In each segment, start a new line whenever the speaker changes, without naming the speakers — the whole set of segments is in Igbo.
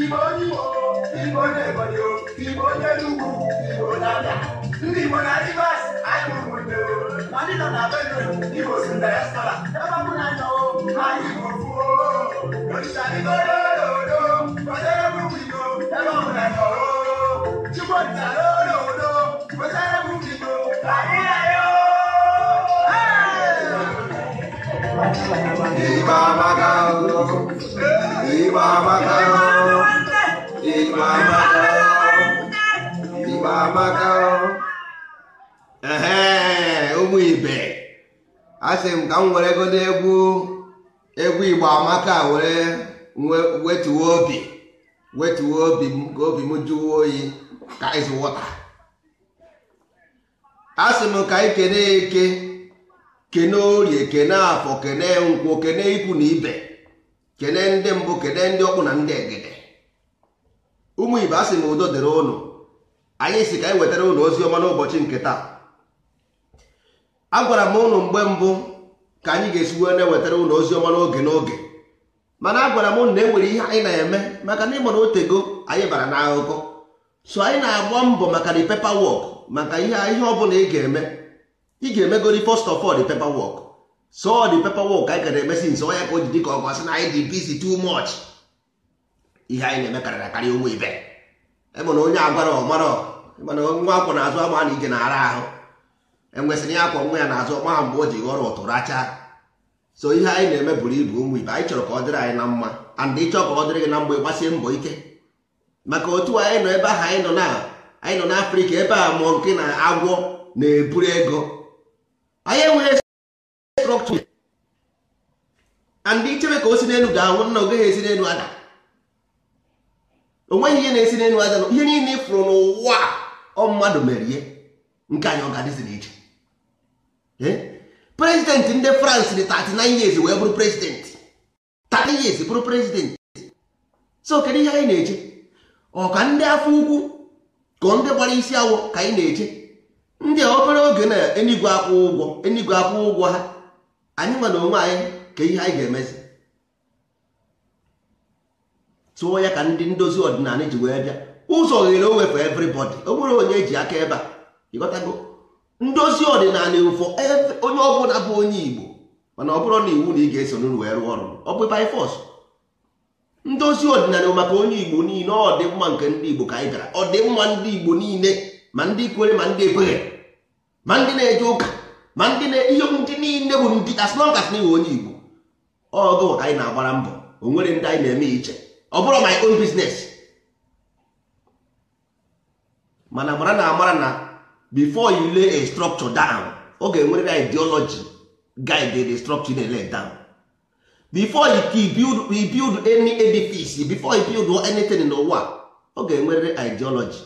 Ibo onye igbo ndị igbo na rivers anyị ụmụnne ma ndị na bedrum igbo si na ebe
na nọ anyị igbo fuo olisa igbo n'odo kwetere ebe ọbụ na nọ chukwu olisa
anyị ee
ụmụ ibe asị m ka m were godo egwu egwu igbo amaka were wetuo obi wetuo obi m ka obi m jụwa oyi ka ịzụwọta. wọta asị m ka anyị kene eke kene orie kene afọ kene nkwụ kene ikwu na ibe kene ndị mbụ kene ndị ọkpụ na ndị egede ụmụ ibe asị sị m udo dịrị ụnụ anyị si ka anyị wetara ụlọ ozi ọma n'ụbọchị nke taa a gwara m ụnụ mgbe mbụ ka anyị ga-esi wee na-ewetara ụlọ ozi ọma n'oge n'oge mana agwara m m na enwere ihe anyị na-eme maka na ịgbara otego anyị bara n'akụkọ so anyị na-agba mbọ maka the paperwork maka ihe ọ bụla ị ga-eme ị ga-emegori first of all so the paperwork anyị gara emesi nso onye ka o ji dịka ọgụ ọ na anyị dị busy too much ihe anyị na-eme karịrị akarị ibe ebe na onye agwara ọmara mana nwa akwọ na-azụ ama na ije na-ara ahụ enwesịrị ya akwa nwa ya na-azụ ọgba ha mgbe o ji ghọrọ ụtụ racha so ihe anyị na-eme buru ibu ụmụ ibe anyị chọrọ ka ọ dịrị anyị na mma and ịchọ ka ọ dịrị gị na mgbe gbasie mbọ ike maka otu anyị nọ ebe ahụ anyị nọ na anyị nọ ebe a mụọ nke na agwọ na-eburu ego anyị enweghị structure and ichebe ka o si n'elu ga-anwụ nna ogeghị esi n'elu ada nweghị ihe na-esi n'elu ada ihe niile ịfụrụ n'ụwa ọ mmadụ mere ihe nke anyị ọ ga-adịzi n'iche prezidenti ndị France dị 39 years wee bụrụ prezidenti 30 years bụrụ prezidenti so kedu ihe anyị na-eche ọ ndị afọ ukwu ka ndị gbara isi awọ ka anyị na-eche ndị obere oge na enigwe akwụ ụgwọ enigwe akwụ ụgwọ ha anyị nwe na onwe anyị ka ihe anyị ga-emezi tụọ ya ka ndị ndozi ọdịnala ji wee bịa ụzọ oghere onwe for everybody o nwere onye eji aka ebe a ịghọtago ndozi ọdịnala ụfọ onye ọbụla bụ onye Igbo mana ọ bụrụ na iwu na ị ga-eso n'uru wee rụọ ọrụ ọ bụ by force ndozi ọdịnala maka onye Igbo niile ọ dị mma nke ndị Igbo ka anyị gara ọ dị mma ndị Igbo niile ma ndị kwere ma ndị ekweghị ma ndị na-eje ụka ma ndị na ihe okwu ndị niile bụ ndị as long as na iwe onye Igbo ọgụ ka anyị na-agbara mbọ o nwere ndị anyị na-eme iche ọ bụrụ my own business mana mara na amara na before you lay a structure down ọ ga-enwere ideology guide the structure na lay down before you build, you build any edifice before you build anything in the world, ọ ga-enwerịrị ideology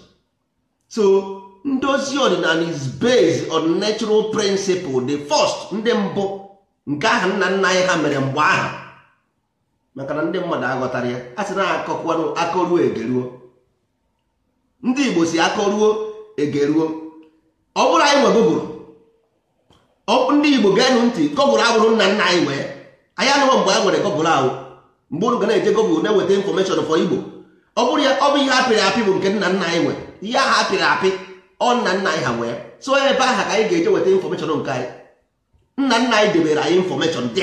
so ndozi ọdịnala is based on natural principle the first ndị mbụ nke aha nna nna anyị ha mere mgbe aha maka na ndị mmadụ aghọtara ya a sị na akọkwanụ akọruo egeruo ndị Igbo si akọruo egeruo ọ bụrụ anyị nwe gụgụrụ ndị Igbo geenụ ntị gọgụrụ agbụrụ nna nna anyị wee anyị anụghị mgbe anyị nwere gọgụrụ ahụ mgbe unu ga na-eje gọgụrụ na enweta infọmeshọn fọ Igbo ọ bụrụ ya ọ bụ ihe apịrị apị bụ nke nna nna anyị nwere ihe ahụ apịrị apị ọ nna nna anyị ha nwee so ebe aha ka anyị ga-eje weta infọmeshọn nke anyị nna nna anyị debere anyị infọmeshọn d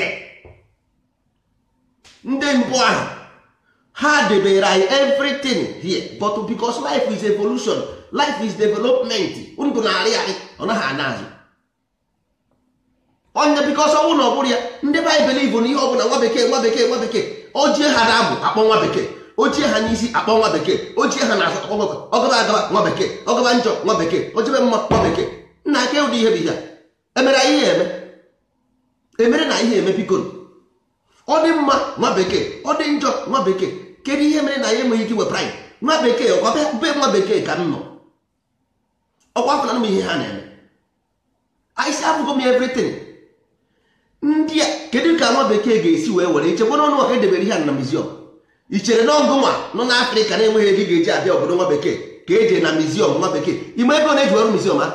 ndị mbụ ahụ ha debere anyị everything here but because life is evolution life is development ndụ na-arị arị ọ naghị ana azụ onye because ọnwụ na ọ bụrụ ya ndị baịbụl ibu na ihe ọ bụla nwa bekee nwa bekee nwa bekee ojie ha na abụ akpọ nwa bekee ochie ha n'isi akpọ nwa bekee ochie ha na-azụ akpọ nwa ọgaba agaba nwa bekee ọgaba njọ nwa bekee ochebe mma nwa bekee nna aka ụdị ihe bụ emere anyị ihe eme emere na ihe eme pikoro ọ dị mma nwa bekee ọ dị njọ nwa bekee kedu ihe mere na ya enweghị ike wepụrụ nwa bekee ọkwa be nwa bekee ka m nọ ọkwa afọ na ihe ha na-eme anyị abụgo m everything ndị a kedu ka nwa bekee ga-esi wee were ichekwa n'ọnụ ọka edebere ihe a na muziọm i chere na nwa nọ na afrịka na-enweghị ego ga-eji abịa obodo nwa bekee ka eje na mizium nwa bekee ime ego na-eji ọrụ miziọm a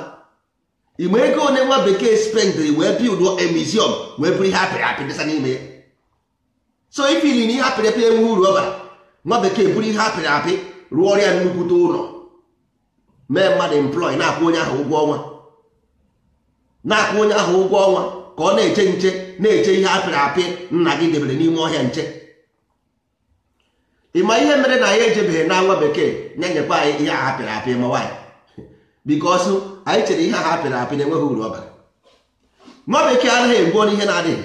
ime ego one nwa bekee spendịrị wee bild emiziọm wee bụrụ ihe apịrị apị dịsa n'ime ya so ifili na ihe apịrị apị enwe uru ọ bara nwa bekee bụrụ ihe apịrị apị rụọ ọrịa nnukwute ụlọ mee mmadụ emplọị na-akwụ onye ahụ ụgwọ ọnwa na-akwụ onye ahụ ụgwọ ọnwa ka ọ na-eche nche na-eche ihe apịrị apị nna gị debere n'ime ọhịa nche ị ma ihe mere na anyị ejebeghị na nwa bekee na-enyekwa anyị ihe a hapịrị apị ma nwaanyị bikọsụ anyị chere ihe a hapịrị apị na-enweghị uru ọ bara nwa bekee anaghị egbuo n'ihe na-adịghị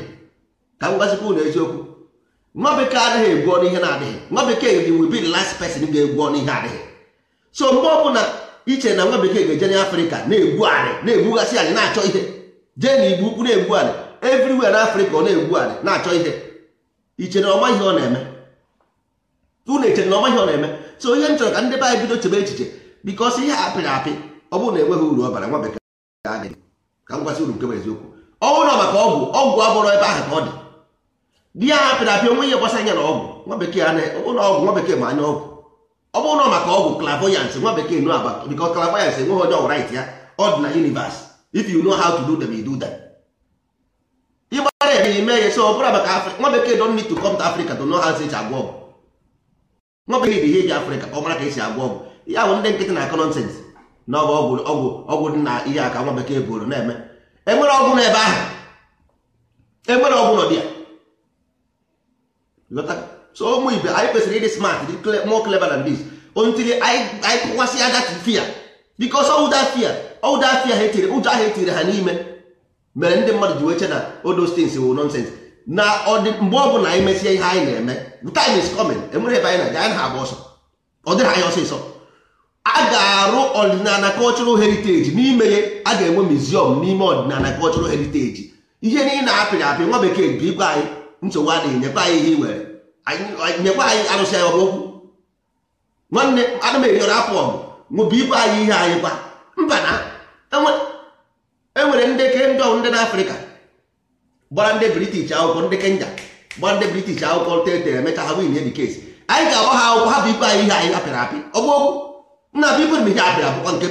ka m gwazikwa eziokwu nwa bekee anaghị egbu ọnụ ihe na-adịghị nwa bekee dị will be last person ga-egbu ọnụ ihe adịghị so mgbe ọ bụla iche na nwa bekee ga-eje Afrika na-egbu anị na-egbughasị anyị na-achọ ihe jee na igbu ukwu na-egbu anị everywhere n'afrịka ọ na-egbu anị na-achọ ihe iche na ọma ihe ọ na-eme unu eche na ọmaghị ọ na-eme so ihe m chọrọ ka ndị be anyị bido chebe echiche bikos ihe apịrị apị ọ bụrụ na enweghị uru ọbara nwa bekee ka m gwasị uru nke eziokwu ọ na maka ọgwụ ọgwụ abụrụ ebe ahụ ka ọ dị di ya apịrị apị onwe ihe gbasara anya na ọgwụ nwa bekee ọgwụ nwa anya ọgwụ ọ bụrụ na maka ọgwụ clavoyance nwa bekee nụ aba enweghị ya ọ dị na universe if you know how to do maka nwa bekee don need to come to Africa to know how agwọ ọgwụ nwa bụ ihe ihe ji afrịka ọ mara ka esi agwọ ọgwụ ya bụ ndị nkịtị na-akọ nọnsens na ọ bụ ọgwụ ọgwụ dị na ihe aka nwa bekee bụrụ na-eme enwere ọgwụ n'ebe ahụ enwere ọgwụ nọ dị ya so ụmụ ibe anyị kwesịrị ịdị smart dị more clever than this ontiri anyị kụkwasị ada fia because ọwụda fia ọwụda fia ha etiri ụjọ ahụ etiri ha n'ime mere ndị mmadụ ji wee che na odo stins wụ nọnsens na mgbe ọbụla anyị mesie ihe anyị na-eme time is coming enwere ebe anyị na-aga anyị na-agba ọsọ ọ dịghị anyị ọsịsọ a ga-arụ ọdịnala cultural heritage n'ime ya a ga-enwe museum n'ime ọdịnala cultural heritage ihe niile apịrị apị nwa bekee bụ igwe anyị nsogbu adịghị nyekwa anyị ihe iwere nyekwa anyị arụsị anyị ọbụokwu nwanne ana m enyere afọ ọgụ nwụbụ igwe anyị ihe anyị kwa mba na enwere e ndị ke ndị ọwụ ndị na gbara ndị british akwụkwọ ndị kenya gbara ndị british akwụkwọ tetere emeka ha win the anyị ga-agba ha akwụkwọ ha bụ ibe anyị ihe anyị apịrị apị ọgbụokwu nna bụ ibe ihe apịrị apịkwa nke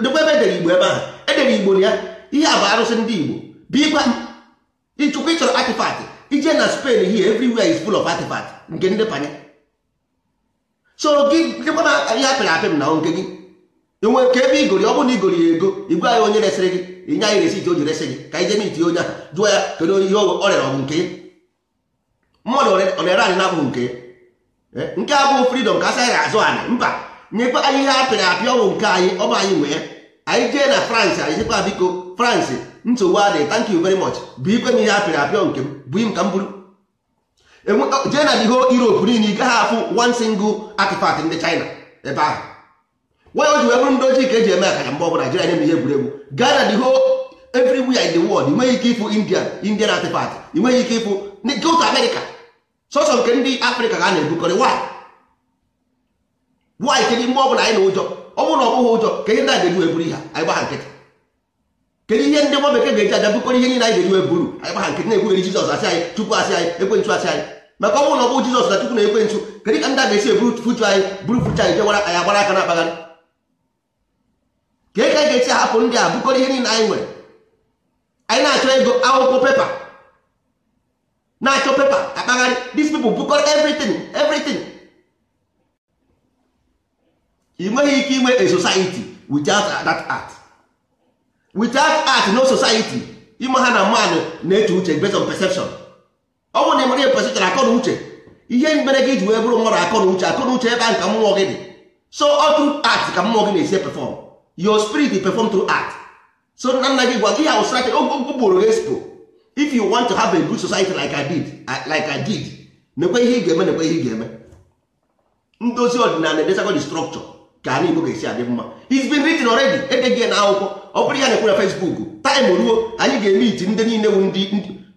dịkwa ebe edere igbo ebe ahụ edere igbo na ya ihe a bụ arụsị ndị igbo bịkwa ịchụkwa ịchọrọ atịfatị ije na spain here everywhere is full of atịfatị nke ndị panye so gị dịkwa ihe apịrị apị m na nke gị enwe nke ebe igori ọ bụrụ na igori ya ego igwe anyị onye resịrị gị inye anyị resiti o ji resị gị ka anyị jee miti onye ahụ jụọ ya kedu onye ihe ọ rere ọ bụ nke mmadụ ọ na-ere anyị na-abụghị nke eh, nke a bụghị fridọm ka asị anyị azụ anyị mba nyekwa anyị ihe apịrị apị bụ nke anyị ọ bụ anyị nwee anyị jee na France anyị jekwa biko France nsogbu adịghị thank yu very much bụ ikwe m ihe apịrị apịọ nke m bụ im ka m bụrụ e jee na ihe Europe niile ị gaghị afụ one ndị China ebe ahụ nwa o ji wee ji ndị ojii ka eji eme akaja mgbe ọbụla jiri anya m ihe egwuregwu Ghana the whole everywhere in the world ị nweghị ike ịfụ India Indian artifact ị nweghị ike ịfụ South America sọsọ nke ndị Afrịka ka a na-ebukọrị why why kedu mgbe ọbụla anyị na ụjọ ọ bụrụ na ụjọ ka ihe ndị a ga-eji wee buru ihe anyị gbaha nkịtị kedu ihe ndị aja bukọrọ ihe anyị ga-eji wee buru anyị gbaha anyị Chukwu asị anyị asị anyị maka ọ bụrụ na ọ na Chukwu na kedu ka ndị a ga-esi eburu fuchu anyị buru fuchu anyị anyị agbara ka e ka ga-esi hapụ ndị a bụkọrọ ihe niile anyị nwere anyị na-achọ ego akwụkwọ pepa na-achọ pepa akpagharị these people bụkọrọ everything everything ị nweghị ike inwe a society without that art without art no society ime ha na mmadụ na-eche uche based on perception ọ bụrụ na ị mara ihe perception akọ na uche ihe mere gị ji wee bụrụ mmadụ akọ na uche akọ na uche ebe ahụ ka mmụọ gị dị so ọtụ art ka mmụọ gị na-esi perform your spirit perform through act so nna nna gị gwa ihe ahụ strategy ụkpụrụ gị expo if you want to have a good society like I did like I did nekwe ihe ị ga-eme nekwe ihe ị ga-eme ndozi ọdịnala edesago the structure ka anyị Igbo ga-esi adị mma it's been written already gị na akwụkwọ ọ bụrụ ya na-ekwu na Facebook Time ruo anyị ga-eme iti ndị niile wu ndị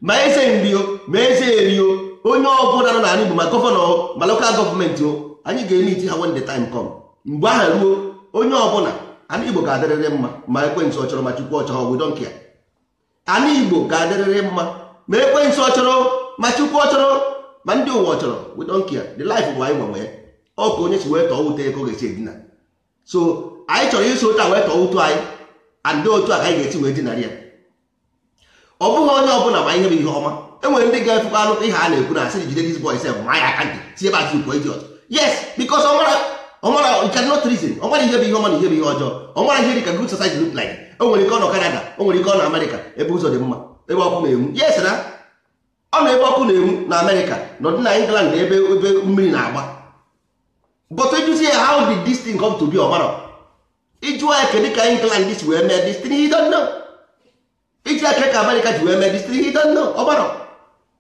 ma eze nri ma eze eri o onye ọbụla nọ n'ala Igbo ma gọvanọ ma lokal gọọmenti o anyị ga-eme iti ha when the time come mgbe ahụ ruo onye ọbụla ana igbo ga-adịrịrị mma ma ekwentị ọ chọrọ ma chukwu ọ chọrọ we don't care ana igbo ga-adịrịrị mma ma ekwentị ọ chọrọ ma chukwu ọ chọrọ ma ndị ụwa ọ chọrọ we don't care the life bụ anyị gbanwe ya ọ ka onye si wee tọọ ute ego ga-esi edina so anyị chọrọ iso ụta wee tọọ utu anyị andị otu a ka anyị ga-esi wee dinara ya ọ bụghị onye ọ bụla ma ihe bụ ihe ọma enwere ndị ga-efekwa anụ ihe a na-ekwu na asị jide dis boy sef ma ya aka ntị tie bat ukwu eji yes because ọ mara ọmara you cannot reason ọmara ihe bụ ihe ọma na ihe bụ ihe ọjọọ ọmara ihe dịka good society look like o nwere ike ọ nọ Canada o nwere ike ọ nọ America ebe ụzọ dị mma ebe ọkụ na-enwu yes na ọ nọ ebe ọkụ na-enwu na America nọ dị na England ebe ebe mmiri na-agba but ejuzie ya how did this thing come to be ọmara ịjụọ ya kedu ka England dis wee mee dis thing he don't know iji aka ka America ji wee mee dis thing he don't know ọmara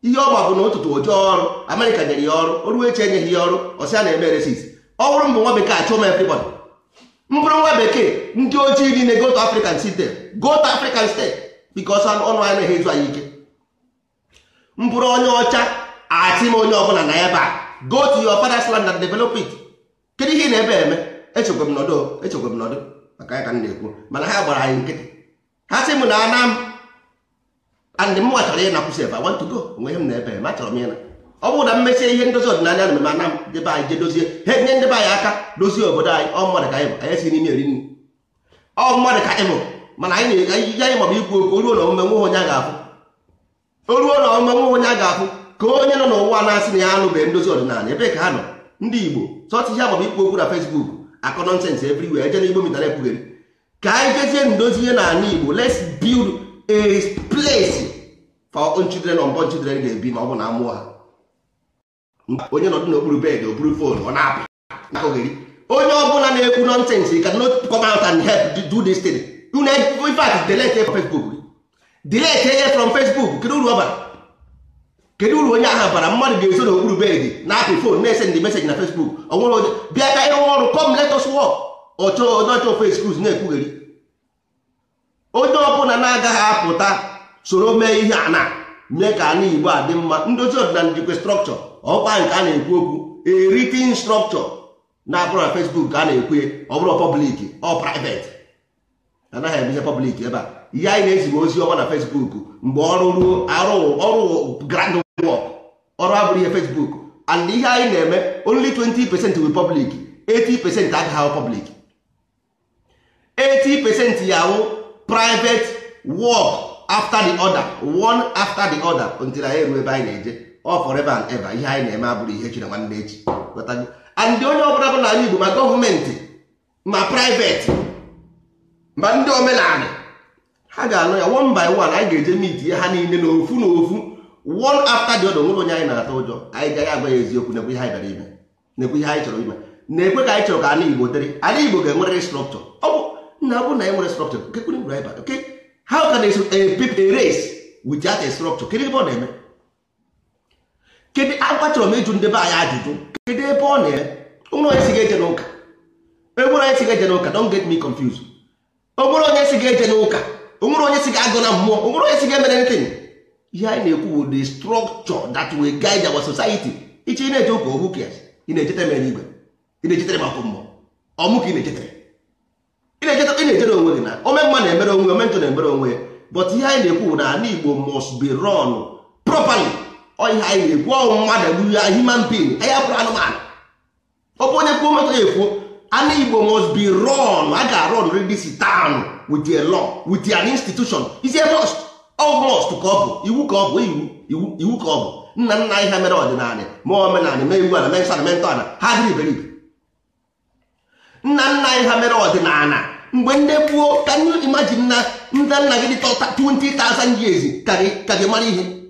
ihe ọma bụ na ụtụtụ ojoo ọrụ America nyere ya ọrụ o enyeghị ya ọrụ ọsị a na-eme resis ọ bụrụ mbụ nwa bekee achụ m everybody mbụrụ nwa bekee ndị ojii niile go to African state go to African state because ọnụ anyị na-ezu anyị ike mbụrụ onye ọcha achị m onye ọbụla na ebe a go to your father's land and develop it kedu ihe na ebe eme echekwa m nọdụ echekwa m nọdụ maka ya ka m na-ekwu mana ha gbara anyị nkịtị ha sị m na ana m and m chọrọ ịnakwụsị ebe I want to go onwe m na ebe eme achọrọ m ịna ọ bụrụ na mmesie ihe ndozi ọdịnala na mmemme anam debe anyị je dozie ha nye ndị be anyị aka dozie obodo anyị ọ mmadụ ka ịbụ anyị si n'ime eri nri ọ mmadụ ka ịbụ mana anyị na-eje anyị maọbụ ikwu okwu oruo na omume nwe onye a ga-afụ oruo na omume nwe onye a ga-afụ ka onye nọ n'ụwa na-asị na ya anụbeghị ndozi ọdịnala ebe ka ha nọ ndị igbo sọtụ ihe maọbụ ikwu okwu na fesbuk akọ nọnsens wee eje n'igbo mitara ekwugheri ka anyị jezie ndozi ihe n'ala igbo let's build a place for children unborn children ga-ebi ma ọ bụ na amụọ onye nọdụ n'okpuru bed okpuru fon ọ na-apị onye ọbụla na-ekwu nọnsens you cannot come out and help do this thing unu in fact delete facebook delete ihe from facebook kedu uru ọ kedu uru onye aha bara mmadụ ga-eso n'okpuru bed na apụ fon na-ese ndị meseji na facebook ọ nwere onye bịa ka ịrụ ọrụ ọchọ na-ekwugheri onye ọbụla na-agaghị apụta soro mee ihe mee ka igbo a dị mma ndozi ọdịnala ọkpa nke a na-ekwu okwu a written structure na abụrụ na Facebook ka a na-ekwu ọ bụrụ public ọ private anaghị emehe public ebe a ihe anyị na-ezigbo ozi ọma na Facebook mgbe ọrụ ruo arụ ọrụ grand work ọrụ abụrụ ihe Facebook and ihe anyị na-eme only 20 percent wi public 80 percent agaghị ahụ public 80 percent ya wụ private work after the other one after the other until anyị ruo ebe anyị na-eje ọ forever and ever ihe anyị na-eme abụrụ ihe chi na nwanne echi and onye ọbụla bụ n'ala Igbo ma gọọmenti ma private ma ndị omenala ha ga-anụ ya one by one anyị ga-eje mit ya ha niile n'ofu n'ofu one after the other nwere onye anyị na-atụ ụjọ anyị gaghị agwa ya eziokwu nekwe ihe anyị bịara ime nekwe ihe anyị chọrọ ime na-ekwe ka anyị chọrọ ka ala Igbo dịrị ala Igbo ga-enwerịrị strọkchọ ọ bụ nna bụ na enwere strọkchọ how can a race without a structure kedu ebe ọ na-eme kedu akwa chọrọ m ịjụ ndị be anyị ajụjụ kedụ ebe ọ na-e onye si ga-eje n'ụka onwere onye si ga-eje n'ụka don get me confused onwere onye si eje n'ụka onwere onye si agụ na mmụọ onwere onye si emere anything ihe anyị na-ekwu bụ the structure that will guide our society iche ị na-eje ụka ohu na-ejetere mere igwe ị na-ejetere akwụ mmụọ ọmụ ka ị na-ejetere ị na-ejetere onwe gị na ome mma na-emere onwe omentụ na-emere onwe ya but ihe anyị na-ekwu na ala Igbo must be run properly ihe anyị yiri gwụọ mmadụ ya human being anyị abụrụ anụmanụ ọ bụ onye kwuo mmetụ ya ekwuo anụ Igbo must be run a ga-arun this town with a law with an institution is a must all ka ọ bụ iwu ka ọ bụ iwu iwu ka ọ bụ nna nna anyị ha mere ọdịnala ma omenala mee iwu ala mee nsọ na mee ntọala ha dịrị iberibe nna nna anyị ha mere ọdịnala mgbe ndị gbuo ka imagine na ndị nna gị dị 20,000 years ka gị mara ihe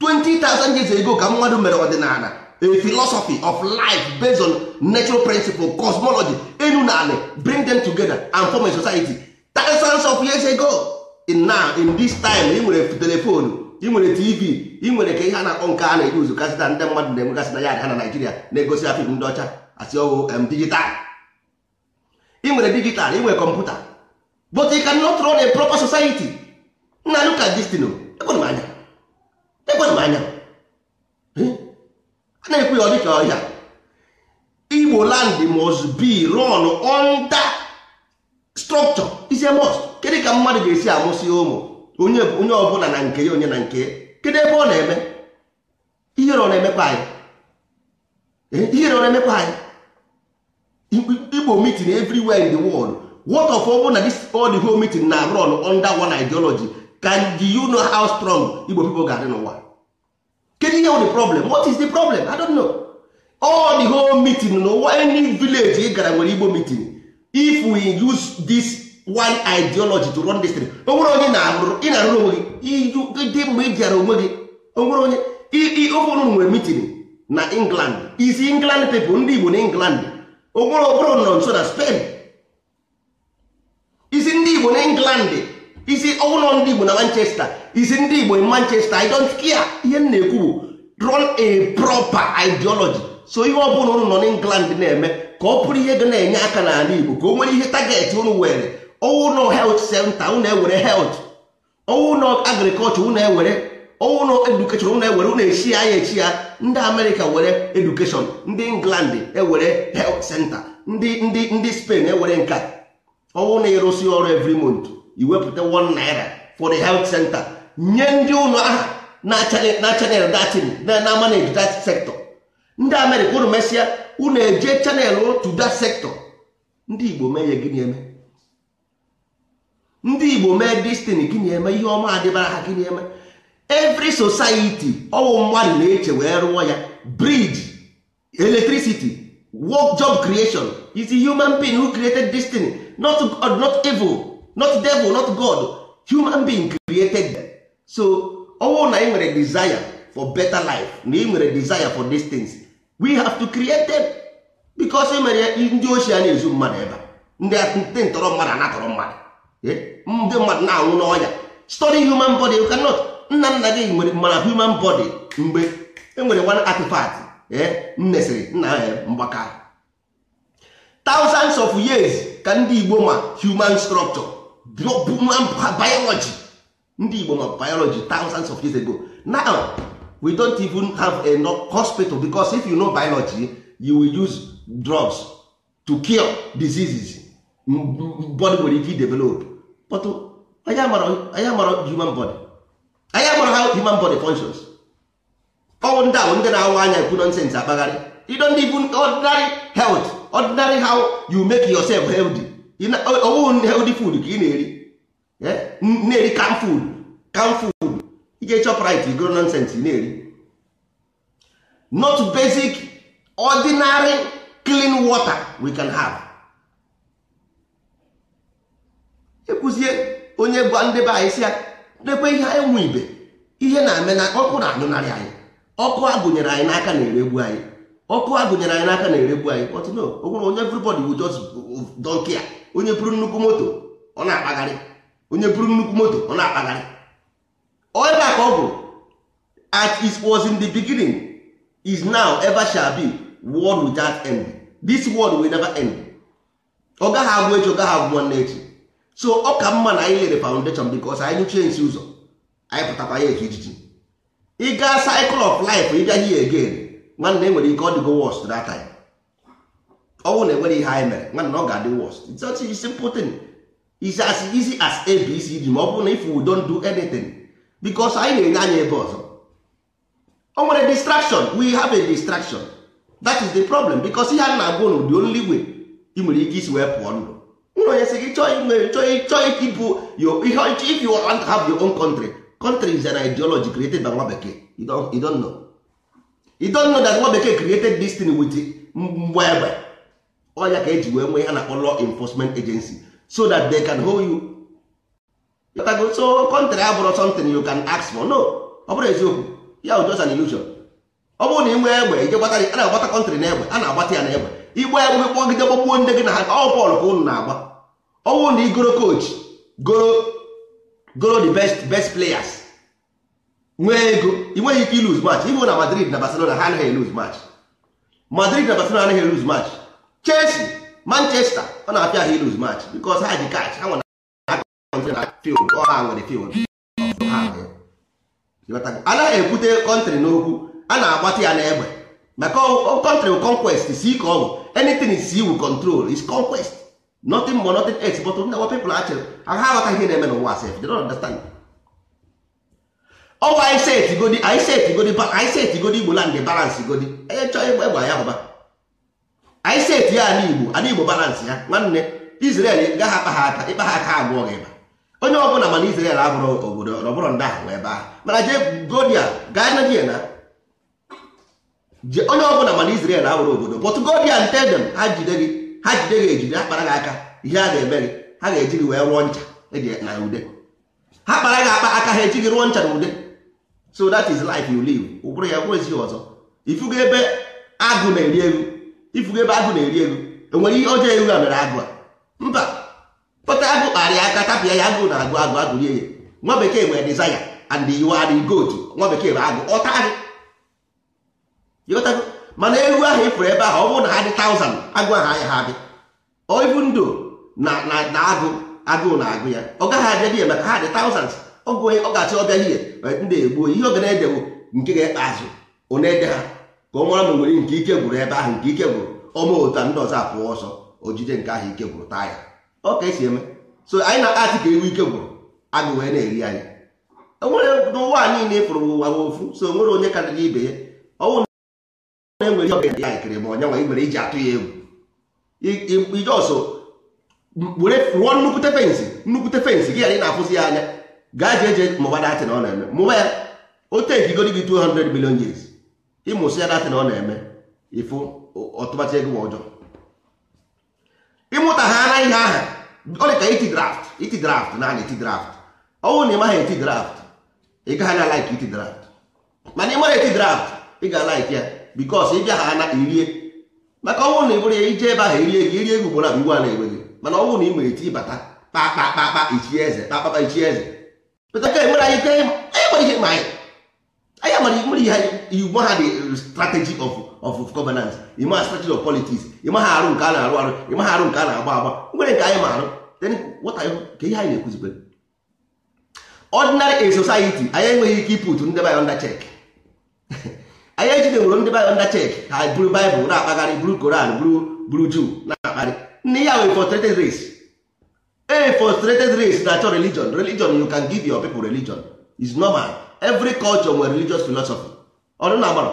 20,000 years ago ka mmadụ mere ọdịnala a philosophy of life based on natural principle cosmology enu na ala bring them together and form a society thousands of years ago in now in this time ị nwere telefonu ị nwere tv ị nwere ka ihe a na-akpọ nke a na-eji uzu kasịta ndị mmadụ na-enwegasị na ya ha na naijiria na-egosi afim ndị ọcha asị ọwụ digital ị nwere digital ị nwere kọmputa but you cannot run a proper society na look at this oh. m anya ọbịa ọ dịka ọhịa igbo land must be run under structure is a must ka mmadụ ga-esi amụsị ụmụ onye onye ọbụla na nke ya onye na nke ya kedụ ebe ọ na-eme ihere ọ na-emekwa anyị eh, ihere ọ na-emekwa anyị igbo meeting everywhere in the world what of ọbụ na this all the whole meeting na run under one ideology can you know how strong igbo people ga-adị n'ụwa kedu ihe the problem what is the problem i don't know all the whole meeting n'ụwa any village ị gara nwere igbo meeting if we use this one ideology to run this thing onwere onye ị na-arụrụ onwe gị dị mgbe ị bịara onwe gị onwere onye ofere nwere meeting na england isi england pipo ndị igbo na england onwere okporo nọ nso na spain isi ndị igbo na england isi ọwụlọ ndị Igbo na Manchester isi ndị Igbo in Manchester I don't care ihe m na-ekwu bụ run a proper ideology so ihe ọ bụla ụnụ nọ England na-eme ka ọ bụrụ ihe ga na-enye aka n'ala Igbo ka o nwere ihe target ụnụ were ọwụlọ health center ụnụ ewere health ọwụlọ agriculture ụnụ ewere ọwụlọ education ụnụ ewere ụnụ echi ya echi ya ndị America were education ndị England ewere health center ndị ndị ndị Spain ewere nka ọwụ na ọrụ evri month iwepụta 1 naira for the health center nye ndị ụlọ aha na-achanel datin na manage that sector ndị amerịka unu mesịa unu eje chanel to that sector ndị igbo mee ya gịnị eme ndị igbo mee destiny gịnị eme ihe ọma adịbara ha gịnị eme every society ọwụ mmadụ na-eche wee rụọ ya bridge electricity work job creation is a human being who created destiny not, not evil not devil not god human being created them. so owo na ị nwere desire for better life na ị nwere desire for these things we have to create them because e mere ndị ochie a na-ezu mmadụ ebe ndị ntọrọ mmadụ anatọrọ mmadụ ndị mmadụ na-anwụ n'ọya study human body you cannot nna nna gị nwere mara human body mgbe enwere one artifact nnesịrị nna mgbaka thousands of years ka ndị Igbo ma human structure biology ndị igbo ma biology thousands of years ago now we don't even have enough hospital because if you know biology you will use drugs to cure diseases body nwere ike develop but anyị uh, amara human body anyị how human body functions ọwụ ndị ahụ ndị na-awa anya ekwu nonsens akpagharị you don't even ordinary health ordinary how you make yourself healthy ọwụghị ụdị food ka ị na-eri eh? na-eri kam food kam food ije chọpụrit igoro e nonsens na-eri not basic ordinary clean water we can have ekwuzie onye bụ ndị be anyị si ya dekwe ihe anyị nwe ibe ihe na-eme na ọkụ na-anyụnarị anyị ọkụ agụnyere anyị n'aka na-eregbu anyị ọkụ agụnyere anyị n'aka na-eregbu anyị but no onye everybody will just uh, don't care onye buru nnukwu moto ọ na-akpagharị onye buru nnukwu moto ọ na-akpagharị ebe a ka ọ bụ at is was in the beginning is now ever shall be world without end this world will never end ọ gaghị agwụ echi ọ gaghị agwụ nwanne echi so ọ ka mma na anyị lere foundation because anyị nyụchie nsi ụzọ anyị pụtakwa ya echi ijiji ịga cycle of life ịbịa hie again nwanne enwere ike ọ dịgo worst that time ọnwụ na enwere ihe anyị mere nwanna ọ ga-adị worst it's such a simple thing is as easy as abcd ma ọ bụrụ na if we don't do anything because anyị na-enye anya ebe ọzọ o nwere distraction we have a distraction that is the problem because ihe a na-agwa ụnụ the only way ị nwere ike isi wee pụọ ndụ ụlọ onye sị gị chọọ ịkịpụ if you want to have your own country country is an ideology created by nwa bekee you don't know you don't know that nwa bekee created this thing with mgbe egbe ọ ya ka eji wee nwee ihe na-akpọ law enforcement agency so that they can hold you so kọntrị abụrụ something you can ask for no ọ bụrụ eziokwu ya bụ just an illusion ọ bụrụ na ị nwee egbe ije gbata a na-agbata kọntrị n'egbe egbe a na-agbata ya na egbe igba egbe kpọgide gbagbuo ndị gị na ha ọ bọọlụ ka ụnụ na-agba ọ bụrụ na ị goro coach goro the best best players nwee ego ị nweghị ike iluz match ibu na Madrid na Barcelona ha anaghị eluz match Madrid na Barcelona anaghị eluz match Chelsea Manchester ọ na-apịa ha iluz match because ha ji catch ha nwere na field ọ ha nwere field anaghị ekwute kọntrị n'okwu a na-agbata ya n'egbe maka kọntrị conquest si ka ọ bụ anything is iwu control is conquest notin more notin else but ndị people achịrị ha aghọta ihe na-eme n'ụwa sef they don't understand ọwa anyị set godi anyị set godi igbo land balance godi onye chọọ egbe egbe ya hụba anyị seti ya ala igbo ala igbo balansị ya nwanne israel gaghị akpa ha aka ịkpa ha aka abụọ gị ba onye ọbụla mana israel abụrụ obodo ọbụrụ ndị ahụ ebe ahụ mana jee godia gaa na dia na onye ọbụla mana israel abụrụ obodo but godia nte ha jide gị ha jide gị ejide ha kpara gị aka ihe a ga-eme gị ha ga-eji gị wee rụọ ncha e na ude ha kpara gị akpa aka ha eji gị rụọ ncha na ude so that is life you live ụbụrụ ya bụrụ ezi ọzọ ifugo ebe agụ na-eri elu ifugo ebe agụ na-eri elu enwere ihe ọjọọ elu a mere agụ a mba kpọta agụ kparịa aka tapịa ya agụ na agụ agụ agụ ya nwa bekee nwere dizaya and you are the nwa bekee bụ agụ ọta agụ ịghọtago mana elu ahụ ifuru ebe ahụ ọ bụrụ na ha dị taụzand agụ ahụ anya ha dị oibu ndụ na na agụ agụụ na agụ ya ọ gaghị abịa dị ya maka ha dị taụzand ọ ga-achị ọbịa ihe ndị egbuo ihe oge na-edewo nke ga-ekpe azụ ọ na-ede ha ka ọ mara ma nwere nke ike gwụrụ ebe ahụ nke ike gwụrụ ọma ụta ndị ọzọ apụọ ọsọ o jide nke ahụ ike gwụrụ taa ya ọ ka esi eme so anyị na-asị ka ewu ike gwụrụ agụ wee na-eri anyị onwere n'ụwa anyị na-efuru ụwa ofu so onwere onye karịrị ibe ya ọnwụ na-enwere ihe ọbịa ya ikere ma ọnyanwa ị nwere iji atụ ya egwu ije ọsọ were rụọ nnukwute fensị nnukwute fensị gị anyị na-afụzi ya anya gaa jee jee mụba datị na ọ na-eme mụba ya o tekigo gị 200 million years ịmụsị ya na ọ na-eme ịfụ ọtụmatụ ego ọjọọ ịmụta ha na ihe aha ọ dị ka iti draft iti draft na iti draft ọnwụ na ịmaghị eti draft ị gaghị na laik iti draft mana ịmara eti draft ị ga laik ya bikos ị bịa ha na irie maka ọnwụ na ibụrụ ya ije ebe ahụ irie gị irie egwu gbora bụ iwu a na-egbe mana ọnwụ na ị nwere eti bata kpakpakpakpa ichi eze kpakpakpa ichi eze pụtaka enwere anyị ike ịma ihe ma anyị anya mara nwere ihe igbo ha dị strategy of of governance ịma strategy of politics ịma ha arụ nke a na-arụ arụ ịma ha arụ nke a na-agba agba nwere nke anyị ma arụ then what are you ihe anyị na-ekwuzikwe ordinary a society anyị enweghị ike ịpụtu ndị bayo under check anyị ejideworo ndị bayo under check ha buru Bible na-akpagharị buru Koran buru buru Jew na-akpagharị nne ya wee frustrated race a frustrated race na-achọ religion religion you can give your people religion is normal every culture nwere religious philosophy ọnụ na amara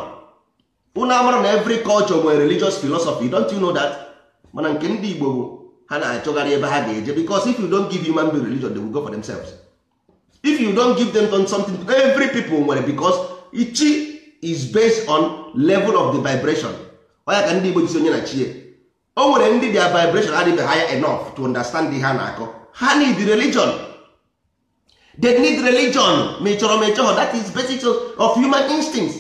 amara na every culture nwere religious philosophy don't you know that mana nke ndị Igbo ha na-achọgharị ebe ha ga-eje because if you don't give human being religion they will go for themselves if you don't give them something every people nwere because ichi is based on level of the vibration ọya ka ndị Igbo jisi onye na chie o nwere ndị their vibration adịghị higher enough to understand ihe ha na-akọ ha need religion they need religion ma ị chọrọ ma ị that is basic of human instincts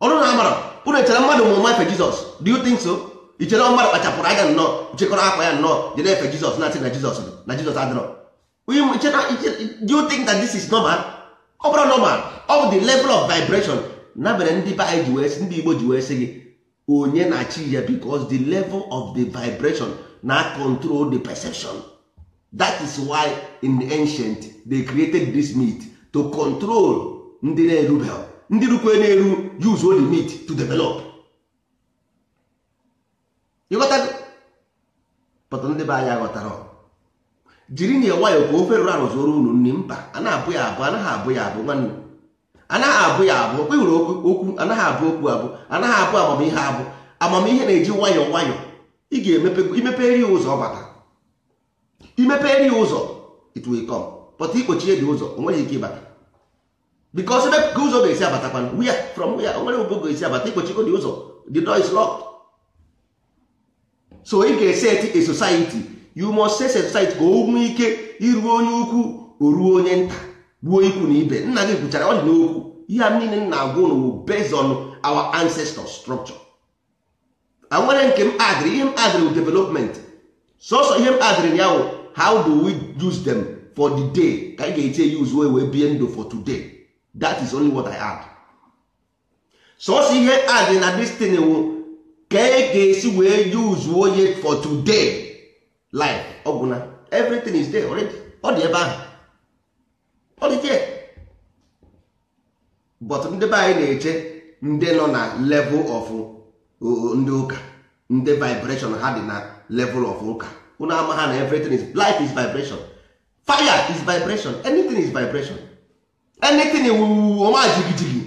ọrụ na amara unu echere mmadụ mụrụ nwa efe jizọs do you think so i chere mmadụ kpachapụrụ anya nnọọ chekọrọ akwa ya nnọọ jere efe jizọs na jesus na jizọs na jizọs adịrọ do you think that this is normal ọ bụrụ normal of the level of vibration na mere ndị be ji wee ndị igbo ji wee sị gị onye na-achị ya because the level of the vibration na control the perception that is why in the ancient they created this meat to control ndị na-erube ndị rukwe na-eru use all the meat to develop pọtụ ndị be anyị aghọtara jiri na nwayọ ka ofe rụrụ arụzụrụ unu nri mba anaghị abụ ya abụ anaghị abụ ya abụ nwanne anaghị abụ ya abụ okwe okwu anaghị abụ okwu abụ anaghị abụ amamihe abụ amamihe na-eji nwayọ nwayọ ị ga-emepe ya ụzọ bata it will come but ikpochie dị ụzọ onwere ike ịbata because ebe ụzọ ga-esi abatakwana where from where onwere nwere ga-esi abata ikpochiko dị ụzọ the door is locked so ị ga-eset a society you must set a society ka o nwee ike iruo onye ukwu o ruo onye nta gbuo ikwu na ibe nna gị kwuchara ọ dị n'okwu ihe a niile nna agwa ụnụ based on our ancestor structure a nwere nke m adịrị ihe m adịrị development sọsọ ihe m adịrị ya wụ how do we use them for the day ka anyị ga-eji use wee wee bie ndụ for today that is only what i add sọsọ ihe adị na dis wụ ka e ga-esi wee use onye for today life ọgwụna everything is there already ọ dị ebe ahụ ọ dị there but ndị be anyị na-eche ndị nọ na level of uh, ndị ụka ndị vibration ha dị na level of ụka unu ama ha na everything is life is vibration fire is vibration anything is vibration anything wuwu ọma jigijigi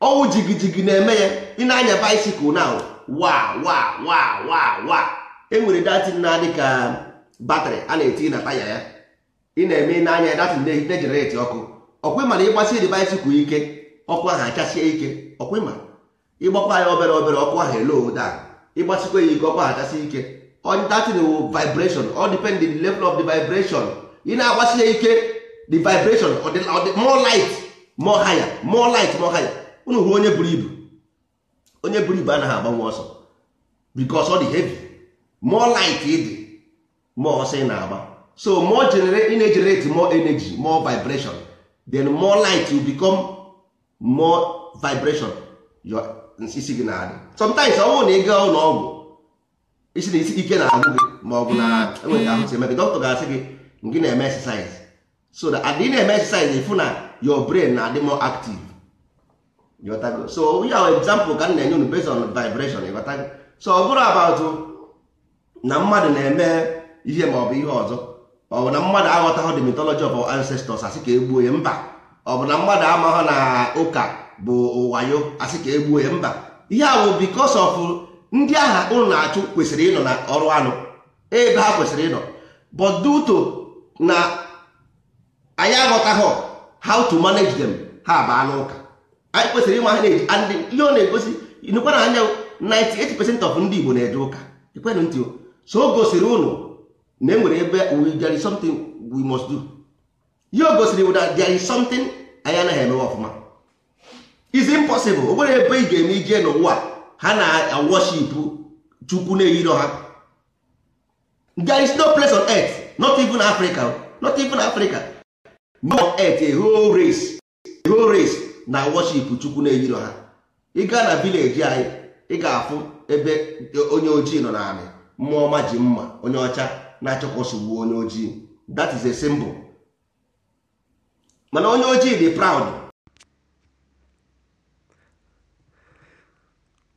ọnwụ jigijigi na-eme ya ị na-anya bicycle now wa wa wa wa wa enwere datin na-adị ka batrị a na-eti na taya ya ị na-eme n'anya datin na-ejenereti ọkụ ọkwa ịma na ịgbasiri bicycle ike ọkụ ahụ achasie ike ọkwa ịma ịgbakwa ya obere obere ọkụ ahụ eloda ịgbasikwa ya ike ọkụ ahụ achasie ike on that will vibration all depend the level of the vibration ị na-agbasie ike the vibration or the, or the more light more higher more light more higher unu hụ onye buru ibu onye buru ibu anaghị agbanwe ọsọ because ọ dị heavy more light ịdị more ọsọ ị na-agba so more generate ị more energy more vibration then more light will become more vibration your nsisi gị na-adị sometimes ọ bụrụ na ị gaa ụlọ ọgwụ isi na isi ike na-agụ gị ma ọ bụ na hmm. enweghị ahụ si eme gị dọkịta ga-asị gị gị na-eme exercise so na adị na-eme exercise ịfụ na your brain na-adị more active ịghọtago so ya ahụ example ka m na-enye unu based on vibration ịghọtago so ọ bụrụ about na mmadụ na-eme ihe ma ọ bụ ihe ọzọ ọ bụ na mmadụ aghọtaghị the mythology of ancestors asị ka egbuo ya mba ọ bụ na mmadụ amaghị na ụka bụ wayo asị ka egbuo ya mba ihe ahụ because of ndị agha ụlọ na-achụ kwesịrị ịnọ na ọrụ anụ ebe ha kwesịrị ịnọ but due to na anyị aghọtaghị how to manage them ha anụ ụka anyị kwesịrị ịma ha na-eji and ihe ọ na-egosi inukwa na anya 98% of ndị Igbo na-eje ụka ekwenụ ntị so o gosiri ụnụ na enwere ebe we there is something we must do ihe o gosiri bụ na there is something anyị anaghị emewe ọfụma is impossible o nwere ebe ị ga-eme ije n'ụwa ha na worship chukwu na-eyiro ha there is no place on earth not even africa not even africa no on earth a whole race a whole race na worship chukwu na-eyiro ha ị gaa na village anyị ị ga-afụ ebe onye ojii nọ naanị mmụọ ọma ji mma onye ọcha na-achọkwasogbuo onye ojii that is a symbol mana onye ojii dị proud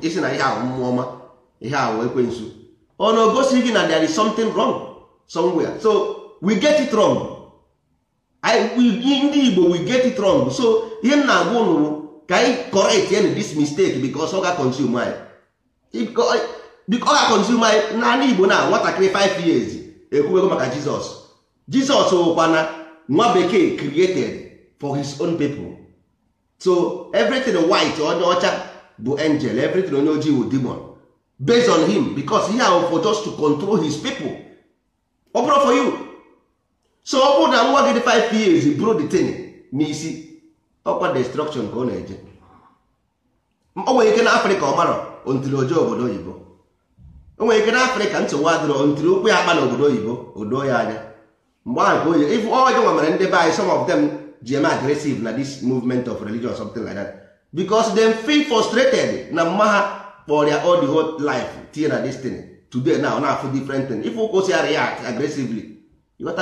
E isi
na ihe ahụ mmụọ ọma ihe ahụ ekwensu ọ na ogosi gị na there is something wrong somewhere so we get it wrong ndị Igbo we get it wrong so ihe m na-agwa ụnụ ka anyị correct any this mistake because ọ ga-consume anyị ọ consume anyị naanị Igbo na nwatakịrị 5 years ekwuwego maka Jizọs Jizọs ụkwana nwa bekee created for his own people so everything white onye ọcha bụ angel everything onye ojii bụ demon based on him because he have for just to control his people ọ bụrụ for you so ọ bụrụ na nwa gị dị 5 years bụrụ the thing n'isi ọkwa destruction ka ọ na-eje o nwere ike na afrịka ọ mara ntiri obodo oyibo o nwere ike na afrịka nsogbu adịrọ ntiri okwu ya akpa na obodo oyibo odo ya anya mgbe ahụ ka oye ọjọ ọjọọ nwere ndị be anyị some of them ji eme na this movement of religion or something like that because dem feel frustrated na mma ha ya all the whole life tinye na this thing today now na afụ different thing if ụkwụ si react aggressively you got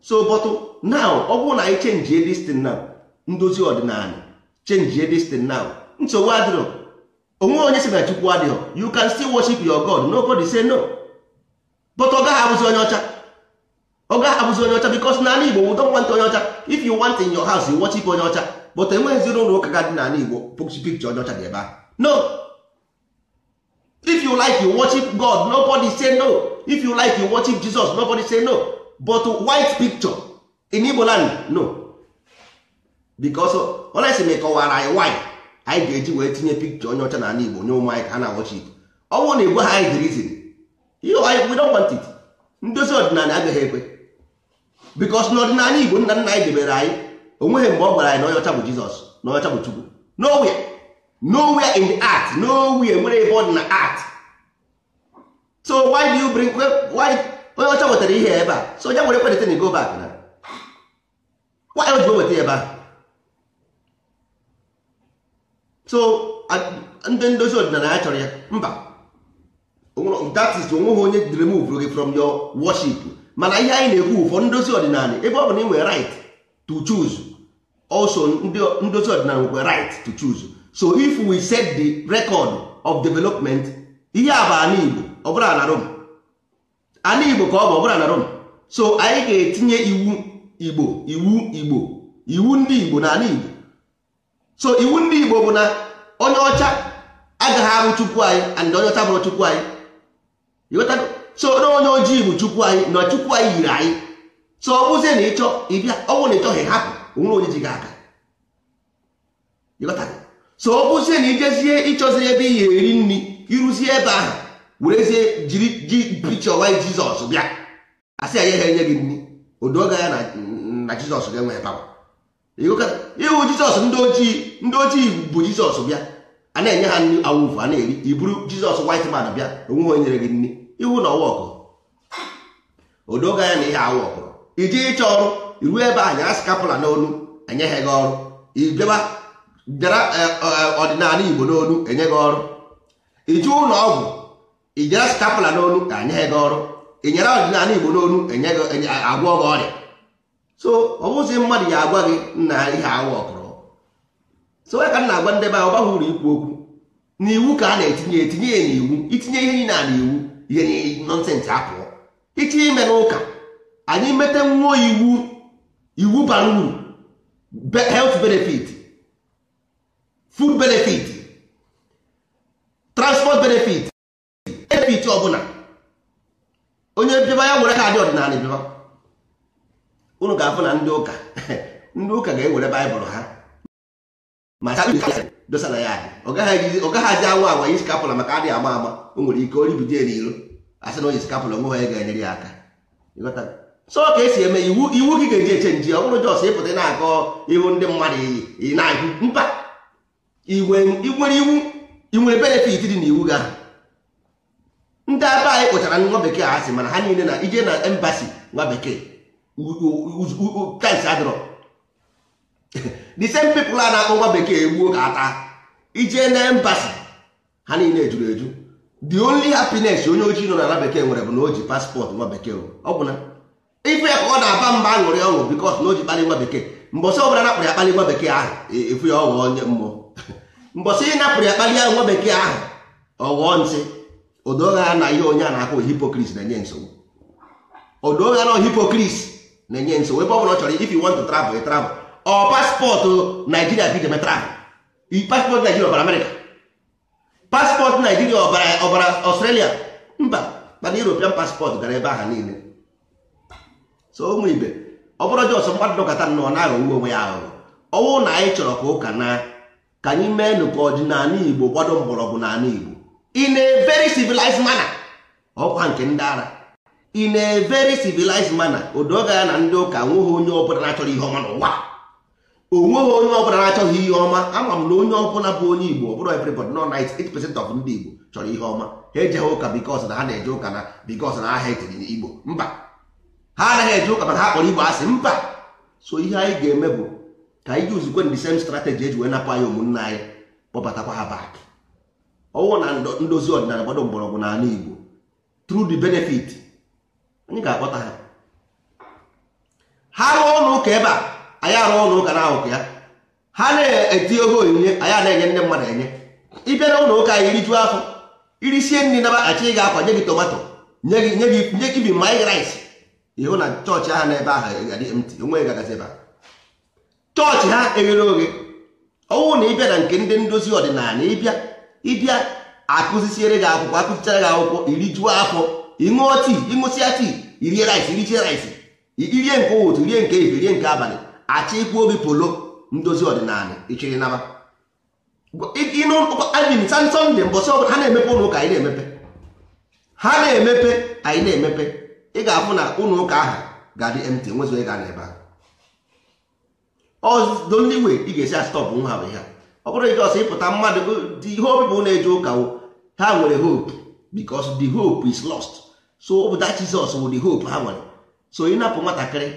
so but now ọ bụrụ na anyị chenjie this now ndozi ọdịnala chenjie this now nsogbu adịrọ onwe onye si na chukwu adịghọ you can still worship your god nobody say no but ọ gaghị abụzi onye ọcha ọ gaghị abụzi onye ọcha bikos n'ala igbo we don't want onye ọcha if you want in your house you watch ife onye ọcha but enweghịzi ụlọ ụka ga dị n'ala igbo pikcha onye ọcha dị ebe ahụ no if you like you worship god nobody say no if you like you worship jesus nobody say no but white picture in igbo land no bikos olesi ma kọwara anyị why anyị ga-eji wee tinye pikcha onye ọcha n'ala igbo nye ụmụ anyị ka ha na-awọchi igbo ọ bụrụ na igwe ha anyị dịrizin we don't want it ndozi ọdịnala agaghị ekwe bikos n'ọdịnala igbo nna nna anyị debere anyị onweghị mgbe ọ gwara anyị na ọcha bụ jizọs na ọcha bụ chukwu nowhere nowhere in the art nowhere nwere ebe ọ dị na art so why do you bring why onye ọcha wetara ihe ebe a so onye nwere kwenete na go back na why o ji weta ebe a so ndị ndozi ọdịnala ya chọrọ ya mba that is onweghị onye remove gị from your worship mana ihe anyị na-ekwu ụfọ ndozi ọdịnala ebe ọ bụ na ị nwere right to choose also ndozi ọdịnala nwekwa right to choose so if we set the record of development ihe a bụ ala ọ bụrụ na Rome ala Igbo ka ọ bụ ọ bụrụ na Rome so anyị ga-etinye iwu Igbo iwu Igbo iwu ndị Igbo na ala Igbo so iwu ndị Igbo bụ na onye ọcha agaghị arụ Chukwu anyị and onye ọcha bụrụ Chukwu anyị so na onye ojii bụ chukwu anyị na chukwu anyị yiri anyị so ọ bụzie na ịchọ ịbịa ọnwụ na ịchọghị hapụ onwere onye ji gị aka so ọ bụzie na ijezie ịchọzie ebe ị ga-eri nri ịrụzie ebe ahụ werezie jiri ji picha wanyị jizọs bịa asị ya ha enye gị nri odoga ya na jizọs ga-enwe ịhụ jizọs ndị ojii ndị ojii bụ jizọs bịa a na-enye ha nri awụfu a na-eri iburu jizọs white man bịa onweghị onye nyere gị nri iwu na ọwọkụ odoga ya na ihe awọkụrụ iji ịchọ ọrụ iru ebe anyị askapụla n'onu enyeghị gị ọrụ ijeba bịara e, e, ọdịnala igbo n'olu enye gị ọrụ ije ụlọ ọgwụ ijere skapụla n'onu enyeghị gị ọrụ inyere ọdịnala igbo n'olu agwọ gị ọrịa so ọ bụzi mmadụ ya agwa gị na ihe ọkụrụ so ya ka m na-agwa ndị ahụ ọ baghị uru ikwu okwu n'iwu ka a na-etinye etinye ya n'iwu itinye ihe niile a n'iwu ihe nọnsensị apụọ ịchọ ime n'ụka anyị mete nwuo iwu iwu bara uru health benefit food benefit transport benefit benefit ọbụla onye bịaba ya were kaadị ọdịnala bịaba unu ga-afụ na ndị ụka ndị ụka ga-ewere baịbụl ha ma dosara ya ọ gaghị aji anwụ agwa yi skapụla maka adịghị ama ama o nwere ike oribido eri iro asị na onye skapụla onwe ya ga-enyere ya aka so ka esi eme iwu iwu gị ga-eji eche nji ọ bụrụ jọs ịpụta na-akọ ihu ndị mmadụ iyi na-ahụ mba nwere iwu inwere benefit dị n'iwu gị ahụ ndị aba anyị kpụchara nwa bekee a sị mana ha niile na ije na embasi nwa bekee tais adịrọ the same people a na-akpọ nwa bekee egbuo ka ata ije na embasi ha niile ejuru eju the only happiness onye ojii nọ n'ala bekee nwere bụ na o ji paspọtụ nwa bekee ọ bụ na ife ya ka ọ na-aba mba aṅụrị ọṅụ bikos na o ji kpalị nwa bekee mbọsị ọbụla napụrụ ya kpalị nwa bekee ahụ e, efu ya ọghọọ onye mmụọ mbọsị ị napụrụ ya kpalị ya nwa bekee ahụ ọghọọ ntị odogha na ihe onye a na-akpọ hipokris na-enye nsogbu odogha na hipokris na-enye nsogbu ebe ọ bụla ọ chọrọ if you travel travel ọ paspọtụ naijiria ka metara paspọtụ naijiria ọbara amerịka paspọtụ naijiria ọbara ọstrelia mba mana european paspọtụ gara ebe aha niile so ụmụ ibe ọ bụrụ jọsọ mmadụ dọkọta nnọọ naghị owu onwe ya aghụghọ ọnwụ na anyị chọrọ ka ụka na ka anyị mee ka ọdịnala igbo gbado mgbọrọgwụ n'ala igbo in a very civilized manner ọkwa nke ndị ara in a very civilized manner odoga ya na ndị ụka nwụghị onye ọbụla na-achọrọ ihe ọma n'ụwa onweghị onye ọbụla na-achọghị ihe ọma ama m na onye ọbụla bụ onye igbo ọ bụrụ everybody no 98% of ndị igbo chọrọ ihe ọma ha ejeghị ụka bikos na ha na-eje ụka na bikos na ha etiri igbo mba ha anaghị eje ụka mana ha kpọrọ igbo asị mba so ihe anyị ga-eme bụ ka anyị yuzikwe the sem strategy eji wee napụ anyị ụmụnna anyị kpọbatakwa ha bak ọnwụ na ndozi ọdịnala gbado mgbọrọgwụ anụ igbo through the benefit anyị ga-akpọta ha ha rụọ ụlọ ụka ebe a anyị arụ ụlọ ụka na ahụkụ ya ha na-eti oge onyinye anyị a enye ndị mmadụ enye ịbịa na ụlọ ụka anyị rijuo afọ irisie nri naba achị ị ga-akwa nye gị tomato nye gị nye gị nye gị bi raịs ịhụ na chọọchị ahụ n'ebe ahụ mt onwe gagazi ebe chọọchị ha eghere oghe ọnwụ na ịbịa na nke ndị ndozi ọdịnala ịbịa ịbịa akụzisiere gị akwụkwọ akụzichara gị akwụkwọ iri juo afọ ịṅụọ tii ịṅụsịa tii irie rice irichie rice irie nke ụtụ rie nke efe rie nke abalị achọ ikwu obi polo ndozi ọdịnala ichiri naba ịnụin sasọnde mbọsị ọbụla ha na-emepe ụlọ ụka anyị na-emepe ha na-emepe anyị na-emepe ị ga-afụ na ụlọ ụka ahụ ga-adị mt nwezu ị ga na ebe ahụ ọdoli we ị ga-esi astọpụ nwa ha bụ ihe ọ bụrụ ọsọ ịpụta mmadụ ihe obibu na-eje ụka ha nwere hope because the hope is lost so ọ bụ that Jesus wụ the hope ha nwere so ịnapụ nwatakịrị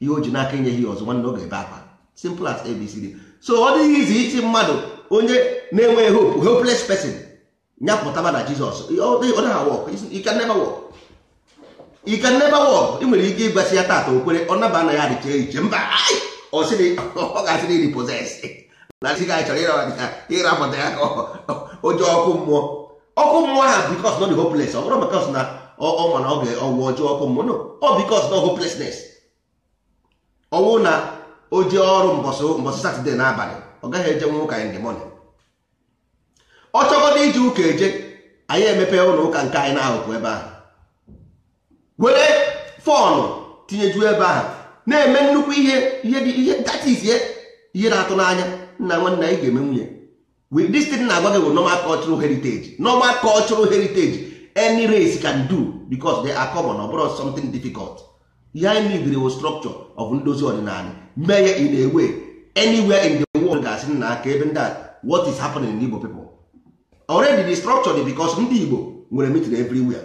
ihe o ji n'aka enye ya ọzọ nwanne ọ ga-ebe akwa simple as abcd so ọ dịghị izi iti mmadụ onye na-enweghị hope hopeless person nyapụtaba na jizọs ọ naghị wọk ike nebe wọk ike nebe wọk ị nwere ike ịgwasị ya tata okwere ọ naba na ya adịcha iche mba ọ ga-asịrị iri poses na sị ga chọrọ ịrapụta ya ka oje ọkụ mmụọ ọkụ mmụọ ha bikos nọ dị hopeless ọ bụrụ maka na ọ na ọ ga-ọgwụ ọjọọ ọkụ mmụọ ọ bikos nọ hopelessness ọnwụ na oji jee ọrụ mbọsị satọde n'abalị ọ gaghị eje nwa ụka in the ọ chọgodo iji ụka eje anyị emepe ụlọ ụka nke anyị na-ahụpụ ebe ahụ were fọnụ tinyejuo ebe ahụ na-eme nnukwu ihe ihe dị ihe datizie ihe na-atụ n'anya nna nwanne anyị ga-eme nwunye with this na-agwa gị bụ normal cultural heritage normal heriteji heritage any race can do because they are common ọ ihe anyị nidiri wo strọkchọ of ndozi ọdịnala mee ya in ewe way in the world ga-asị na aka ebe ndị what is happening in Igbo people already the structure dị because ndị Igbo nwere meeting everywhere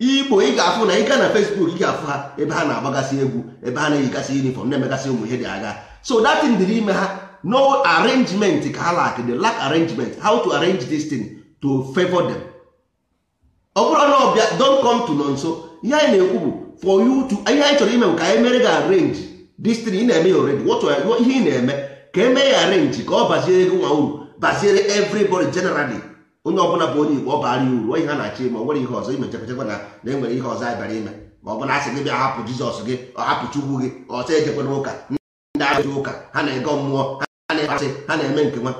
Igbo ị ga-afụ na ị gaa na Facebook ị ga-afụ ha ebe ha na-agbagasị egwu ebe ha na-eyigasị uniform na-emegasị ụmụ ihe dị agha so that thing dị ime ha no arrangement ka ha lack the lack arrangement how to arrange this thing to favor them ọ bụrụ na ọbịa don come to nọ nso ihe anyị na-ekwu bụ for you to ihe anyị chọrọ ime ka anyị e mere gị arrange this ị na-eme ya already what ihe ị na-eme ka e mee ya arrange ka ọ baziere gị nwa uru baziere everybody generally onye ọbụla bụ onye igbo ọ bara ya uru ihe a na achị ime o nwere ihe ọzọ ime chekwachekwa na na enwere ihe ọzọ anyị bara ime ma ọ bụla asị gị bịa hapụ Jizọs gị ọhapụ Chukwu gị ọsọ ejekwana ụka ndị agha ụka ha na ege mmụọ ha na-ekpasị ha na-eme nke nwa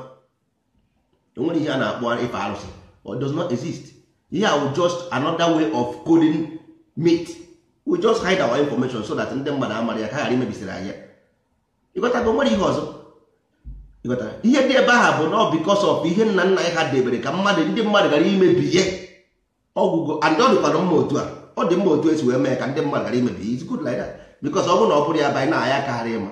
onwere ihe a na-akpọ ife arụsị or does exist ihe a just another way of coding meat we just hide our information so that ndị mmadụ amara ya ka ghara imebisiri anyị ịghọtago nwere ihe ọzọ ịghọtara ihe dị ebe aha bụ na ọ because of ihe nna nna ya ha debere ka mmadụ ndị mmadụ ghara imebi ihe ọgwụgwọ and ọ dịkwara mma otu a ọ dị mma otu esi wee mee ka ndị mmadụ ghara imebi it's good like that because ọ bụrụ na ọ bụrụ ya bụ na-aya akaghara ịma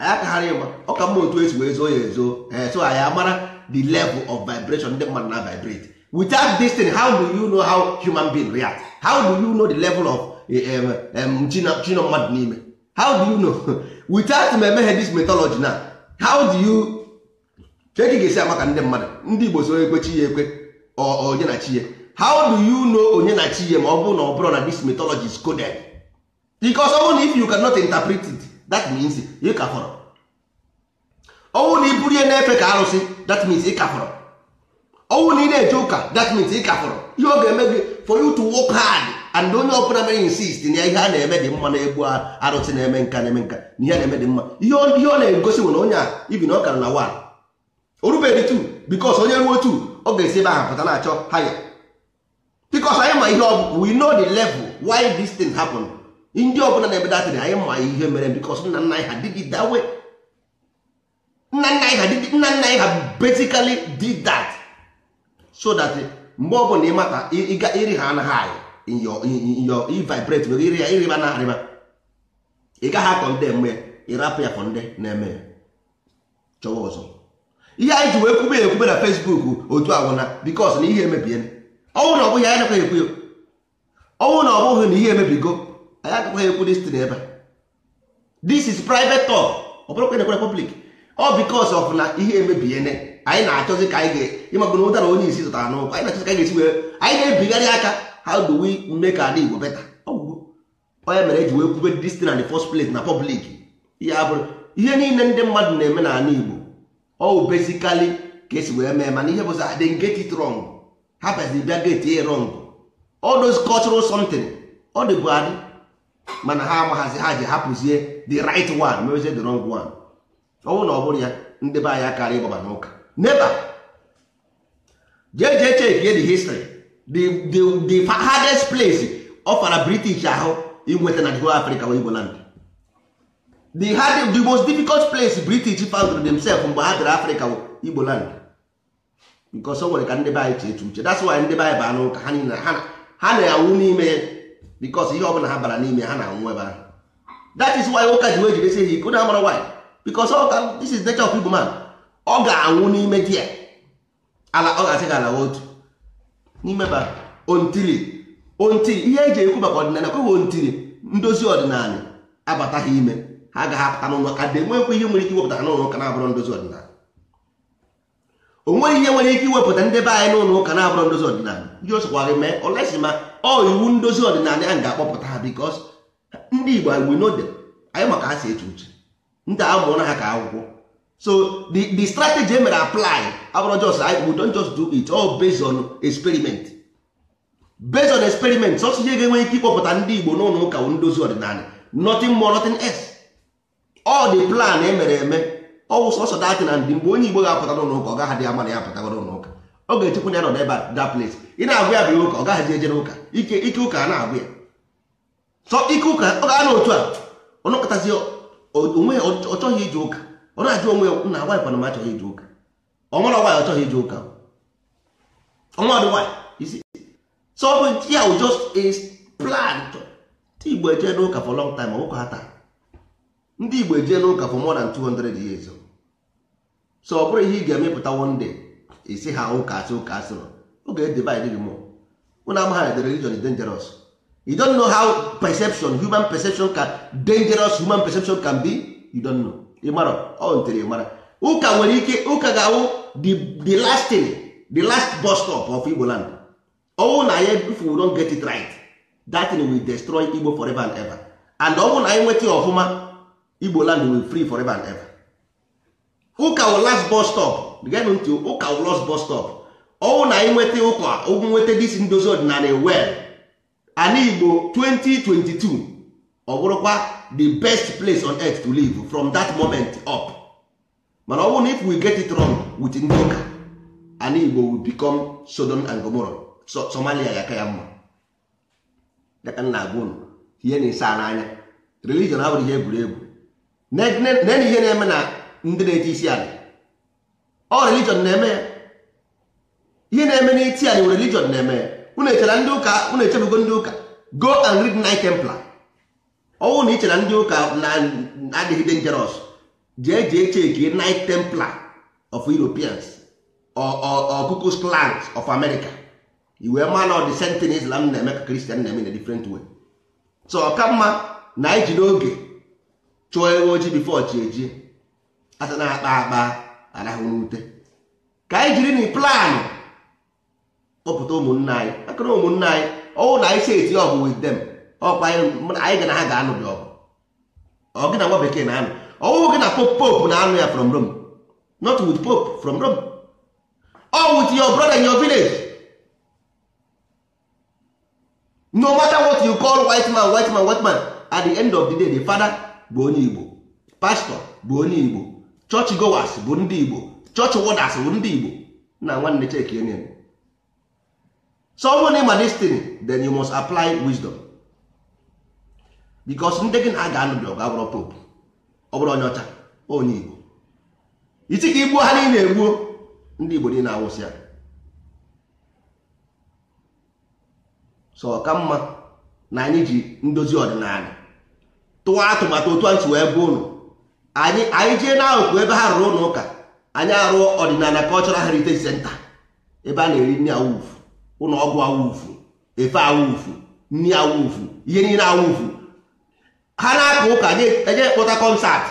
anyị akaghara ịma ọ ka mma otu esi wee zoo ya ezoo eh, so anyị mara the level of vibration ndị mmadụ na vibrate without this thing how do you know how human being react how do you know the level of chino eh, eh, mmadụ n'ime how do you know without m emeghe this mythology na how do you cheki ga-esi amaka ndị mmadụ ndị igbo so ekwe chi ya ekwe onye na chi ya how do you know onye na chi ya ma ọ bụrụ na ọ bụrụ na this mythology is coded because ọ bụrụ na if you cannot interpret it that means ịkafọrọ ka fọrọ ọnwụ na iburu ya na-efe ka arụsị that means ị ọnwụ na ị na-eje ụka that means ị kafọrọ ihe ọ ga-eme gị for you to work hard and onye ọbụla mere insist na ihe a na-eme dị mma na-egbu arụsị na-eme nka na-eme nka na ihe na-eme dị mma ihe ọ na-egosi nwere onye a ibi na ọ na one o rubeghị two because onye ruo tu ọ ga-esi ebe ahụ pụta na-achọ haya because anyị ma ihe ọ bụ we know the level why this thing happen ndị ọbụla na-ebedatịrị anyị ma ihe mere because nna nna ha did it that way nna nna ha basically did that so that mgbe ọ bụla ịmata iri ha anaghị anyọ ivibrate nwere iri ya iriba na arịba ị gaghị akọ ndị mgbe ịrapụ ya fọ ndị na-eme chọwa ọzọ ihe anyị ji wee kwube ya ekwube na Facebook otu agwụna because na ihe emebiela ọnwụ na ọ bụghị anyị nakwaghị ekwu ọnwụ na ọ bụghị na ihe emebigo anyị agakwaghị ekwu destin ebe n'ebe this is private talk ọ bụrụkwa na ekwere public ọ because of na ihe emebiene anyị na-achọzi ka anyị ịmagoro ụtara onye isi zụtara n'ụkwụ anyị na-achọzi ka anyị ga-esi wee anyị na-ebigharị aka ha do we ka ala Igbo better onye mere eji wee kwube dis na the first place na public ihe abụrụ ihe niile ndị mmadụ na-eme n'ala Igbo ọ besikali ka esi wee mee mana ihe bụzi adị ah, get it wrong ha pezi bịa get e wrong all those cultural ọ dị bụ adị mana ha amaghazi ha ji hapụzie the right one mewezie the wrong one ọ bụrụ na ọ bụrụ ya ndị be anyị karịa ịgbaba n'ụka never jee jee check the history the, the, the hardest place ọfara british ahụ inweta na the africa wee igbo land the hard, the most difficult place british found themselves mgbe ha dịrị africa igbo land because o nwere ka ndị be anyị uche that's why ndị be baa n'ụka ha niile ha na-anwụ n'ime because ihe ọbụla ha bara n'ime ha na-anwụ ebe ahụ that is why ụka ji wee jidesi ha iko na amara why because ọka this is nature of igbo man ọ ga-anwụ n'ime di ya ala ọ ga-asị gị ala otu n'ime ba ontiri ontiri ihe eji ekwu maka ọdịnala kọwa ontiri ndozi ọdịnala abataghị ime ha ga-apụta n'ụlọ ka dị nwekwa ihe nwere ike iwepụta n'ụlọ ụka na-abụrụ ndozi ọdịnala o nweghị ihe nwere ike iwepụta ndị be anyị n'ụlọ ụka na-abụrụ ndozi ọdịnala ji osokwa gị mee olesi ma ọ iwu ndozi ọdịnala ahụ ga-akpọpụta ha bikos ndị Igbo anyị we anyị maka ha si eche uche ndị a mụrụ ha ka akwụkwọ so the the strategy emere apply abụrụ just we don't just do it all based on experiment based on experiment sọsụ ihe ga-enwe ike ịkpọpụta ndị Igbo n'ụlọ ụka ndozi ọdịnala nothing more nothing else all the plan emere eme ọwụ sọsọ datin and mgbe onye Igbo ga-apụta n'ụlọ ụka ọ gaghadị ama na ya apụtago n'ụlọ ụka ọ ga-echekwa ya nọ n'ebe that place ị na-agụ ya bịa ụka ọ gaghadị eje n'ụka ike ike ụka a na-agụ ya so ike ụka ọ ga-anọ otu a ọ nọkọtazi onwe ọ chọghị ije ụka ọ na-ajụ onwe ya na agwa kwana m achọghị ije ụka ọmara nwaanyị achọghị ije ụka ọnwa dị nwaanyị isi so ọ bụ ya wụ just a plan ndị igbo ejee n'ụka for long time ọnwụkọ ha taa ndị igbo ejee n'ụka for more than 200 years so ọ bụrụ ihe ị ga-emepụta one day isi ha ụka asị ụka asịrọ oge edivide gị mụọ ụna amagha na the religion is dangerous you don't know how perception human perception can dangerous human perception can be you don't know ịmarọ ọ ntiri mara ụka nwere ike ụka ga-awụ the last thing the last bus stop of Igbo land ọnwụ na anya if we don't get it right that thing will destroy Igbo forever and ever and ọnwụ na anyị nweta ọfụma Igbo land will free forever and ever ụka wụ last bus stop geenụ ntị ụka wụ last bus stop ọnwụ na anyị nweta ụka ụgwụ nweta dis ndozi ọdịnala well ana Igbo 2022 ọ bụrụkwa the best place on earth to live from that moment up mana ọ bụrụ na if we get it wrong with ndị ụka an igbo will become Sodom and Gomorrah so Somalia ya ka ya mma dịka nna agwa ihe na-ese a n'anya religion abụrụ ihe egwuregwu nene ihe na-eme na ndị na-eti isi ala ọ religion na-eme ya ihe na-eme n'iti anyị religion na-eme ya unu echela ndị ụka unu echebugo ndị ụka go and read Knight Templar ọnwụ na iche na ndị ụka na-adịghị dangerous jee jee cheki night templar of europeans ọkụkụ clans of america iwe ma na ọdị sentin islam na-eme ka kristian na-eme na different way so ka mma na anyị ji n'oge chụọ ewe ojii bifo chi eji asa na-akpa akpa arahụ n'ute ka anyị jiri na plan kpọpụta ụmụnne anyị akụrụ ụmụnne anyị ọnwụ na anyị si eti ọgụ with them ọkwa anyị ga na ha ga-anụ gị ọgụ ọ gị na nwa bekee na-anụ ọwụwụ gị na pope pope na-anụ ya from Rome not with pope from Rome or with your brother in your village no matter what you call white man white man white man at the end of the day the father bụ onye Igbo pastor bụ onye Igbo church goers bụ ndị Igbo church warders bụ ndị Igbo na nwanne chekienye so ọ bụrụ na ịma destin then you must apply wisdom bikos ndị gị na-aga anụ bi ọgụ popu ọ bụrụ onye ọcha onye igbo isi ka igbuo ha niile egbuo ndị igbo niile awụsị ya so ka mma na anyị ji ndozi ọdịnala tụwa atụmatụ otu anyị si wee bụ ụlọ anyị anyị jee n'akụkụ ebe ha rụrụ ụlọ ụka anyị arụọ ọdịnala cultural heritage senta ebe a na-eri nri awụfu ụlọ ọgwụ awụfu efe awụfu nri awụfu ihe niile awụfu ha na-akpa ụka anyị akpọta e kọnsatị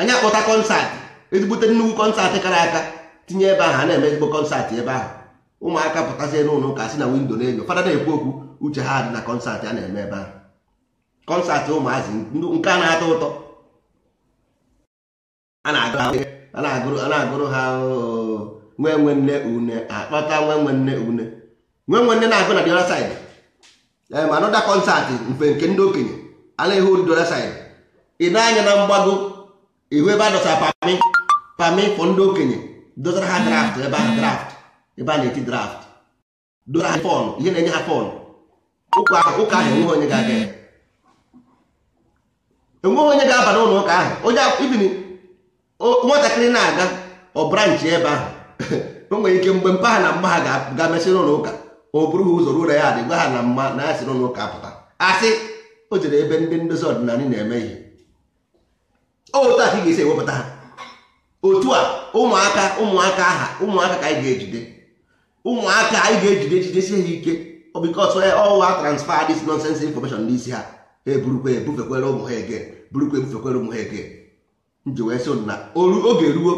anyị e akpọta kọnsatị ezigbute nnukwu kọnsatị kara aka tinye ebe ahụ a na-eme ezigbo kọnsatị ebe ahụ ụmụaka pụtasị n'ụlọ ụka si na windo na-enyo fada na-ekwu okwu uche ha dị na kọnsatị a na-eme ebe ahụ kọnsatị ụmụazị nke a na-atọ ụtọ a na-agụrụ ha nwe nwe nne une akpata nwe nwe nne une nwe nwe nne na-agụ na the other side anọda kọnsatị mfe nke ndị okenye ala ihu ndị ọda saịd ị na-anya na mgbago ihu ebe a dọsara pami pami fọ ndị okenye dọtara ha draft ebe a draft ebe a na-eti draft dọtara ha fọn ihe na-enye ha fọn ụka ahụ enweghị onye ga-aga ya enweghị onye ga-aba n'ụlọ ụka ahụ onye ibini nwatakịrị na-aga ọ branchị ebe ahụ o nwere ike mgbe mpa ha na mma ha ga-amesịrị ụlọ ụka o bụrụ ha ụzọ ruo ya adị gwa ha na mma na ya sịrị ụlọ ụka pụta asị o jere ebe ndị ndozi ọdịnala na-eme ihe otu aka ị ga-esi ewepụta ha otu a ụmụaka ụmụaka aha ụmụaka ka anyị ga-ejide ụmụaka anyị ga-ejide ejidesi ha ike bikos ọwa transfer this nonsense information n'isi ha eburukwa ebufekwere ụmụ ha ege burukwa ebufekwere ụmụ ha ege nji wee sị na oge ruo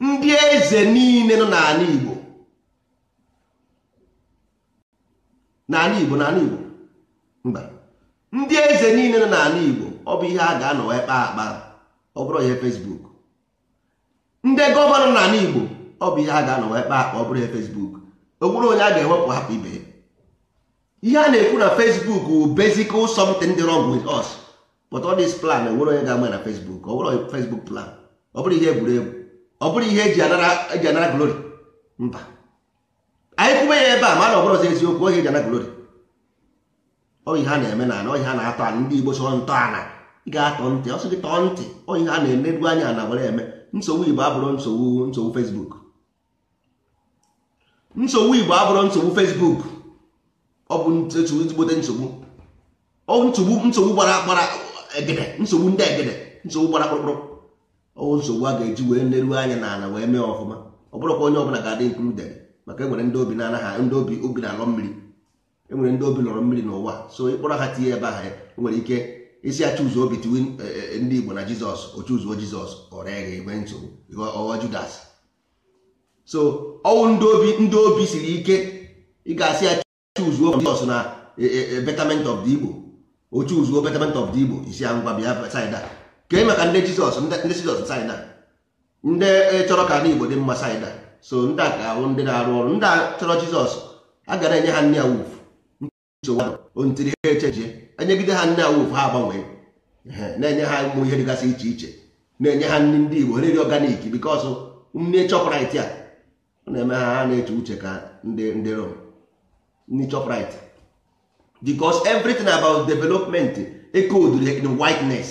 ndị eze niile nọ n'ala Igbo n'ala Igbo n'ala Igbo mba ndị eze niile nọ n'ala Igbo ọ bụ ihe a ga-anọwa kpa akpa ọ bụrụ ihe Facebook ndị gọvanọ n'ala Igbo ọ bụ ihe a ga-anọwa kpa akpa ọ bụrụ ihe Facebook o nwere onye a ga-ewepụ hapụ ibe ihe a na-ekwu na Facebook wụ basic something dị wrong with us but all this plan enwere onye ga-ama na Facebook ọ bụrụ Facebook plan ọ bụrụ ihe egwuregwu ọ bụrụ ihe eji anara glori mba anyị kwube ya ebe a mana ọ bụrụ ọzọ eziokwu ohe eji anara glori. Ọ ihe a na-eme na ọ ọhịa a na-atọ ana ndị Igbo chọrọ ntọala ị ga-atọ ntị ọ sị gị tọọ ntị ọ ọhịa a na-enedu anya na were eme nsogbu Igbo abụrụ nsogbu nsogbu Fesbuk. nsogbu Igbo abụrụ nsogbu Fesbuk, ọ bụ ezigbote nsogbu ọ nsogbu nsogbu gbara gbara egede nsogbu ndị egede nsogbu gbara kpụrụkpụrụ ọ nsogbu a ga-eji wee neru anya na ala wee mee ọfụma ọ bụrụkwa onye ọbụla ga-adị included maka enwere ndị obi na-anaghị ndị obi obi na-alọ mmiri enwere ndị obi lọrọ mmiri n'ụwa so ịkpọrọ ha tinye ebe aha ya e nwere ike isi achụzụ obi tiwe e, e, ndị Igbo na Jizọs ochuzuo Jizọs ọrịa gbe nsogbu ọghọ Judas so ọnwụ ndị obi ndị obi siri ike ị ga-asị ya chuzuo Jizọs na betament of the Igbo ochuzuo betament of the Igbo isi ya ngwa bịa saịda kee maka ndị Jizọs ndị Jizọs saịda ndị chọrọ ka ndị Igbo dị mma saịda so ndị a ka ahụ ndị na-arụ ọrụ ndị a chọrọ Jizọs a gara enye ha nne ya wuf ntiri ha echejie enyegide ha nne awuf ha agbanwee na-enye ha ụmụ ihe dịgasị iche iche na-enye ha nri ndị Igbo nri ọganik bikos nne chọpụrit a na-eme ha ha na-eche uche ka ndị Rom nne chọpụrit bikos everything about development encoded eh, in whiteness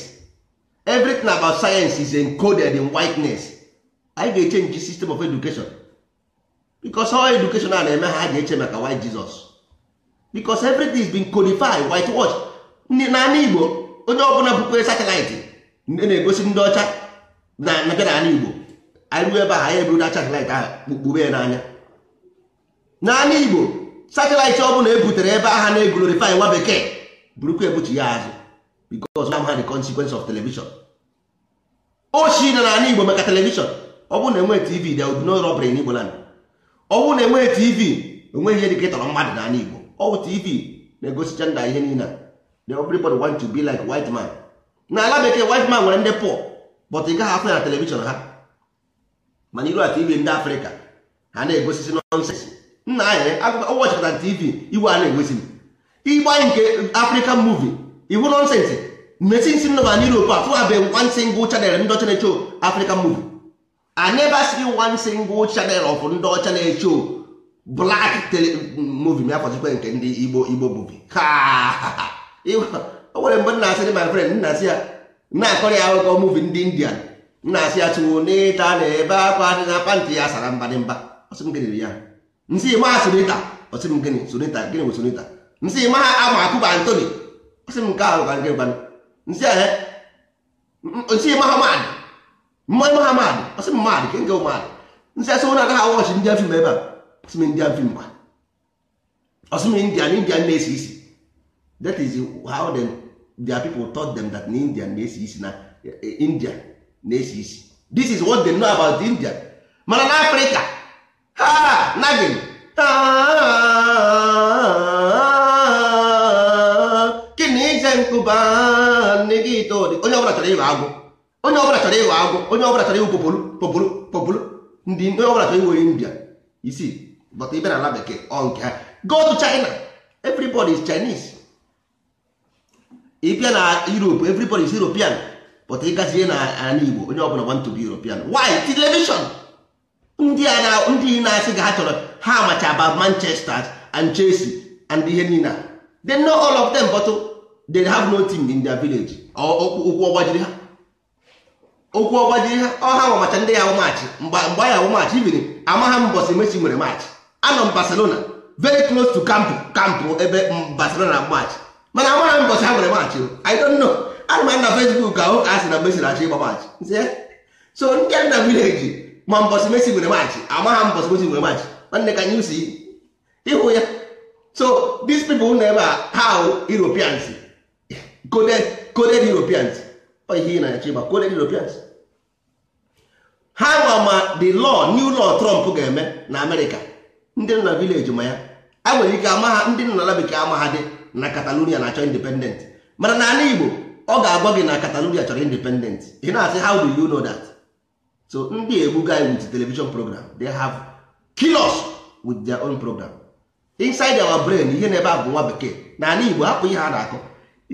everything about science is encoded in whiteness anyị ga-echenji sistem of education bikos ọ education a na-eme ha ha ga-eche maka white Jesus because everything bin being codified whitewash n'ala igbo onye ọbụla bụkwa satịlaịtị na-egosi ndị ọcha na na n'ala igbo anyị ruo ebe a anyị eburu na satịlaịtị ahụ kpukpube ya n'anya n'ala igbo satịlaịtị ọbụla ebutere ebe aha na-egolorify nwa bekee burukwa ebuchi ya azụ because ha the consequence of television oshi na n'ala igbo maka telivishọn ọ bụrụ na enwe tv dị would be no n'Igbo in igbo ọ bụrụ na enweghị tv onweghị ihe dịka ịtọrọ mmadụ n'ala igbo ọwụ tv na-egosicha nda ihe niile the everybody want to be like white man na ala bekee white man nwere ndị pụọ but ị gaghị afụ ya na telivishọn ha mana iru ati TV ndị afrịka ha na-egosisi nọnsensị nna anyị na tv iwe a na-egosi m ịgba nke african muvi iwu nọnsensị mesi nsi nnọba na europe afụ abe one single chanel ndị ọcha na-echo african movie i never see chanel single ndị ọcha na black tele movie ya kwazikwa nke ndị igbo igbo bubi o nwere mgbe na-asị dị my friend nna-asị ya na-akọrọ ya akụkọ movie ndị indian nna-asị ya tụwo n'ịta na ebe akwa na pantị ya sara mbadịmba ọsị m gịnị ya nsị ma sunita ọsị m gịnị gịnị bụ sunita nsị ma ama akụba antoni ọsị m nke ahụ ka nke gbanụ nsị ahụ nsị mahamad mmadụ mahamad ọsị m mmadụ ke nke ụmadụ nsị asị ụlọ agaghị awọchi ndị afim ebe a ọsịm film kwa ọsịm na-esi isi that is how them their people taught them that na india na-esi isi na eh, india na-esi isi this is what they know about the indian mana na africa ha nagin onye ọbụla chọrọ ịghọ agwụ onye ọbụla chọrọ ịghọ agwụ onye ọbụla chọrọ ịwụ popolu popolu ndị onye ọbụla chọrọ ịwụ india isii but ibe na ala bekee ọ nke ha go china everybody is chinese ịbịa na europe everybody is european but ị gazie na ala igbo onye ọbụla want to be european why television ndị a ndị na-asị ga ha chọrọ ha amacha about manchester and chelsea and ihe niile they know all of them but they have no team in their village okwu ọgbajiri ha okwu ọgbajiri ha ọha nwamacha ndị ya awụ mgbe anyị awụ ibiri amaha mbọsị nwere maachị anọ m barcelona very close to camp camp ebe barcelona match mana amara m mbọchị ha nwere match i don't know ana m ana facebook ahụ ka a sị na messi na-achọ ịgba match so ndị a na village ma mbọchị messi nwere match ama ha mbọchị messi nwere match nwanne ka anyị si ịhụ ya so these people na ebe a ha europeans coded coded europeans ọ ihe na achọ ịgba coded europeans ha nwa ma the law new law trump ga-eme na america ndị nọ na vileji ma ya a nwere ike ama ha ndị nọ n'ala bekee ama ha dị na Catalonia na-achọ independent mana n'ala Igbo ọ ga-agwa gị na Catalonia chọrọ independent ị na-asị how do you know that so ndị egbu guy with television program they have kilos with their own program inside our brain ihe na-ebe a bụ nwa bekee n'ala Igbo hapụ ihe ha na-akọ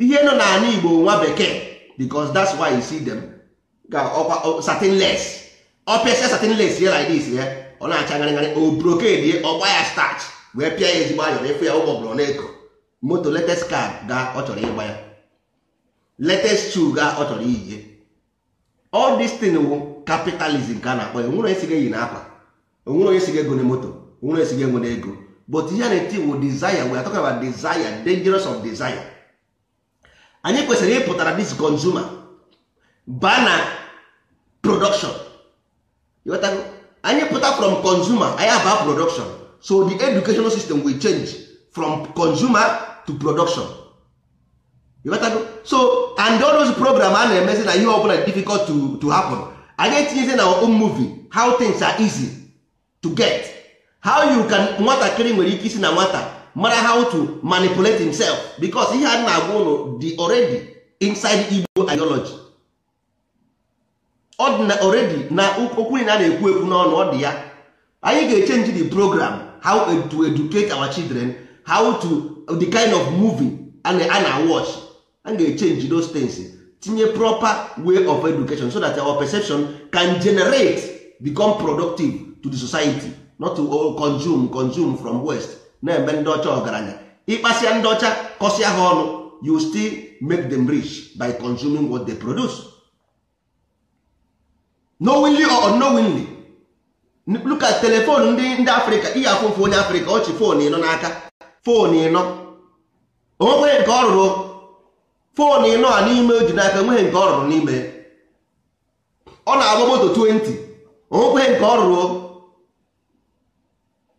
ihe nọ n'ala Igbo nwa bekee because that's why you see them ga ọkwa certain less opesa certain less like this yeah? ọ na-acha ngarịngarị o brokedi ọgba ya starch wee pịa ya ezigbo ayọrọ ịfụ ya ụgbọ bụrụ na-eko moto latest car ga ọ chọrọ ịgba ya latest shoe ga ọ chọrọ iyi all this thing wụ capitalism ka a na-akpọ ya onwere onye siga eyi na akwa onwere onye siga ego na moto onwere onye siga enwe na ego but ihe na-eti wụ desire we are talking about desire dangerous of desire anyị kwesịrị ịpụtara this consumer baa na production anyị pụta from consumer anyị aba production so the educational system will change from consumer to production so and all those program a na-emezi na ihe ọbụla difficult to, to happen anyị etinyezi na own movie how things are easy to get how you can nwatakịrị nwere ike isi na nwata mara how to manipulate himself because ihe a na-agwa ụlọ dị already inside Igbo ideology ọ na already na okwu na na-ekwu ekwu n'ọnụ ọ dị ya anyị ga-echenji the program how to educate our children how to the kind of movie a na-watch a ga-echenji those things tinye proper way of education so that our perception can generate become productive to the society not to consume consume from west na-eme ndị ọcha ọgaranya ịkpasia ndị ọcha kọsịa ha ọnụ you still make them rich by consuming what they produce. knowingly or unknowingly look at telephone ndị ndị afrịka ihe afụfụ onye afrịka ọchị fon ịnọ n'aka fon ịnọ onweghị nke ọ rụrụ fon ịnọ a n'ime o ji n'aka nweghị nke ọ rụrụ n'ime ọ na-agba moto 20 onweghị nke ọ rụrụ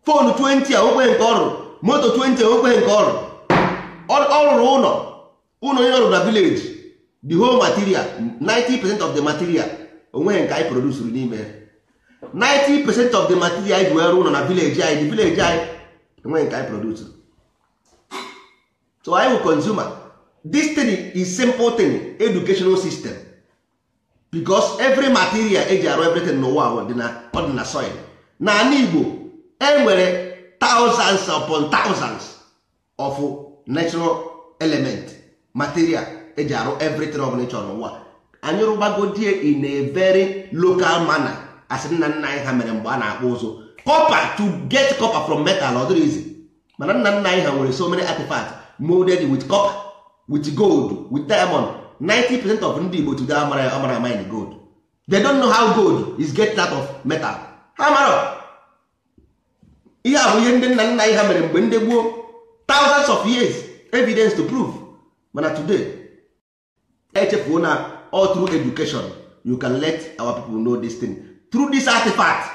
fon 20 a onweghị nke ọ rụrụ moto 20 onweghị nke ọ rụrụ ọ rụrụ ụlọ ụlọ onye ọrụ na vileji the whole material 90 percent of the material onwe nke anyị n'ime 90 percent of the material anyị ji wee rụọ ụlọ na vileji anyị the vileji anyị onwe nke anyị produsuru so anyị bụ consumer is simple thing educational system because every material eji arụ everything n'ụwa ọ ọdịna soil na ala Igbo enwere thousands upon thousands of natural element material eji arụ everything ọbụla ịchọrọ n'ụwa anyị rụbagodie in a very local manner as nna nna anyị ha mere mgbe a na-akpụ ụzụ copper to get copper from metal ọ dịrị izi mana nna nna anyị ha nwere so many artifacts molded with copper with gold with diamond 90% of ndị Igbo today amara amara mine gold they don't know how gold is get out of metal ha mara ihe a bụ ihe ndị nna nna anyị ha mere mgbe ndị gboo thousands of years evidence to prove mana today echefuo na all through education you can let our people know this thing through this artifact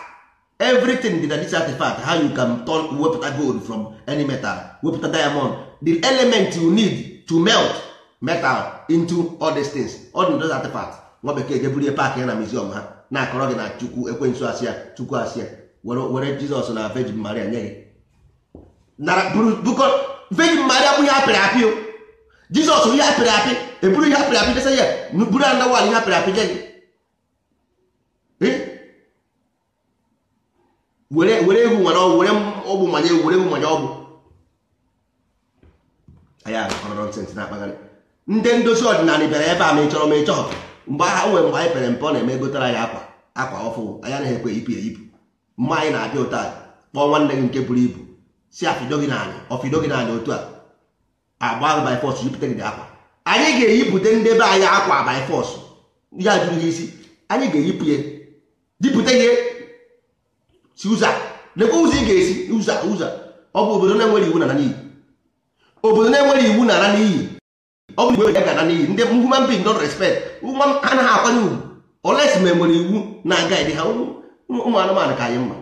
everything dị na this artifact how you can turn wepụta gold from any metal wepụta diamond the element you need to melt metal into all these things all those artifacts nwa bekee jeburie park ya na museum ha na-akọrọ gị na chukwu ekwensu asịa chukwu asịa were jizọs na virgin maria nye gị virgin maria bụ ihe apịrị apị jizọs ihe apịrị apị eburu ihe apịrị apị desa ya buru anda wal ihe apịrị apị nye gị were ehu nwere ọgwụ were ọgwụ manye ewu were ehu manye ọgwụ anya ọrọrọ ntị na-akpagharị ndị ndozi ọdịnala bịara ebe a ma ị ma ị mgbe ha nwere mgbe anyị pere mpe ọ na-eme egotere anyị akwa akwa ọfụ anya na-ekwe ipụ ya ipụ mma anyị na-abịa ụta kpọọ nwanne gị nke buru ibu si afido gị naanị ọfido otu a agba by force jupụta gị akwa anyị ga-eyipụta ndebe anyị akwa by force ya jụrụ ha isi anyị ga-eyipụ ya dipụta ihe si ụzọ lekwa ụzọ ị ga-esi ụzọ ụzọ ọ bụ obodo na-enwere iwu na n'iyi obodo na-enwere iwu na ana n'iyi ọ bụ igbe ya ga-ana n'iyi ndị human being don respect ha naghị akwanye ugwu oles ma enwere iwu na aga dị ha ụmụ anụmanụ ka anyị mma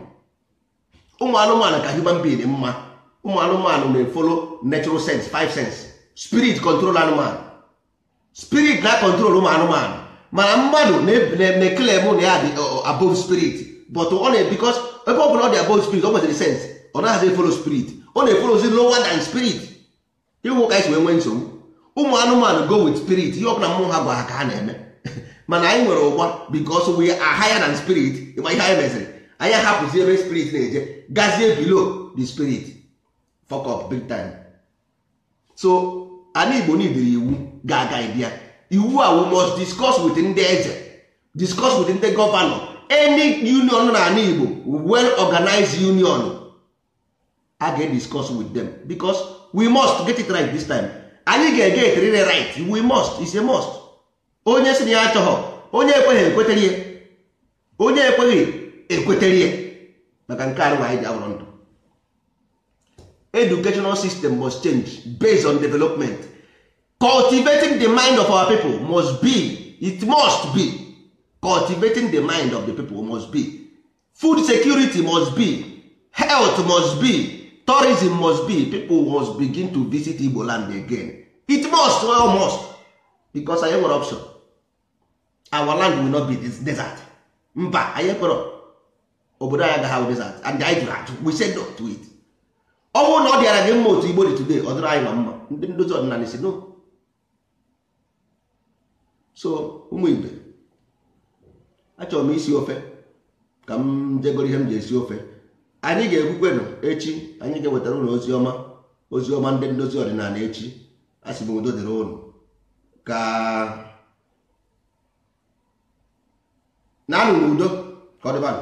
ụmụ anụmanụ ka human being mma ụmụ anụmanụ na-efolo natural sense five sense spirit control anụmanụ spirit na control ụmụ anụmanụ mana mmadụ na-ekelem na ya dị above spirit but ọ na because ebe ọ bụla ọ dị spirit ọ nwetara sense ọ naghịzi follow spirit ọ na-efolozi lower than spirit ịhụ ka anyị si wee nwee nsogbu ụmụ anụmanụ go with spirit ihe ọbụla mmụọ ha gwa ha ka ha na-eme mana anyị nwere ụgba because we are higher than spirit ịgba ihe anyị meziri anyị ahapụzi ebe spirit na-eje gazie below the spirit fok up big time so ana igbo iwu ga-aga bịa iwu a we must discuss with ndị eze discuss with ndị gọvanọ any union na ana igbo well organized union a ga discuss with them because we must get it right this time anyị ga-eget rire right we must is a must onye si na ya achọghọ onye ekweghị ekwetere onye ekweghị ekwetere maka nke arụ anyị ji awụrụ ndụ educational system must change based on development cultivating the mind of our people must be it must be cultivating the mind of the people must be food security must be health must be tourism must be people must begin to visit Igbo land again it must well must because anyị nwere option our land will not be this desert mba anyị kpọrọ obodo anyị agaghị desert and the jụrụ we said no to it ọ bụrụ na ọ dịara gị mma otu igbo dị today ọ dịrị anyị ma mma ndị ndozi ọdịnala si no so ụmụ igbe achọrọ m isi ofe ka m jegoro ihe m ji esi ofe anyị ga-ekwukwenụ echi anyị ga enwetara ụlọ ozi ọma ozi ọma ndị ndozi ọdịnala echi a sị m udo dịrị ụlọ ka na anụ n'udo ka ọ dịbanụ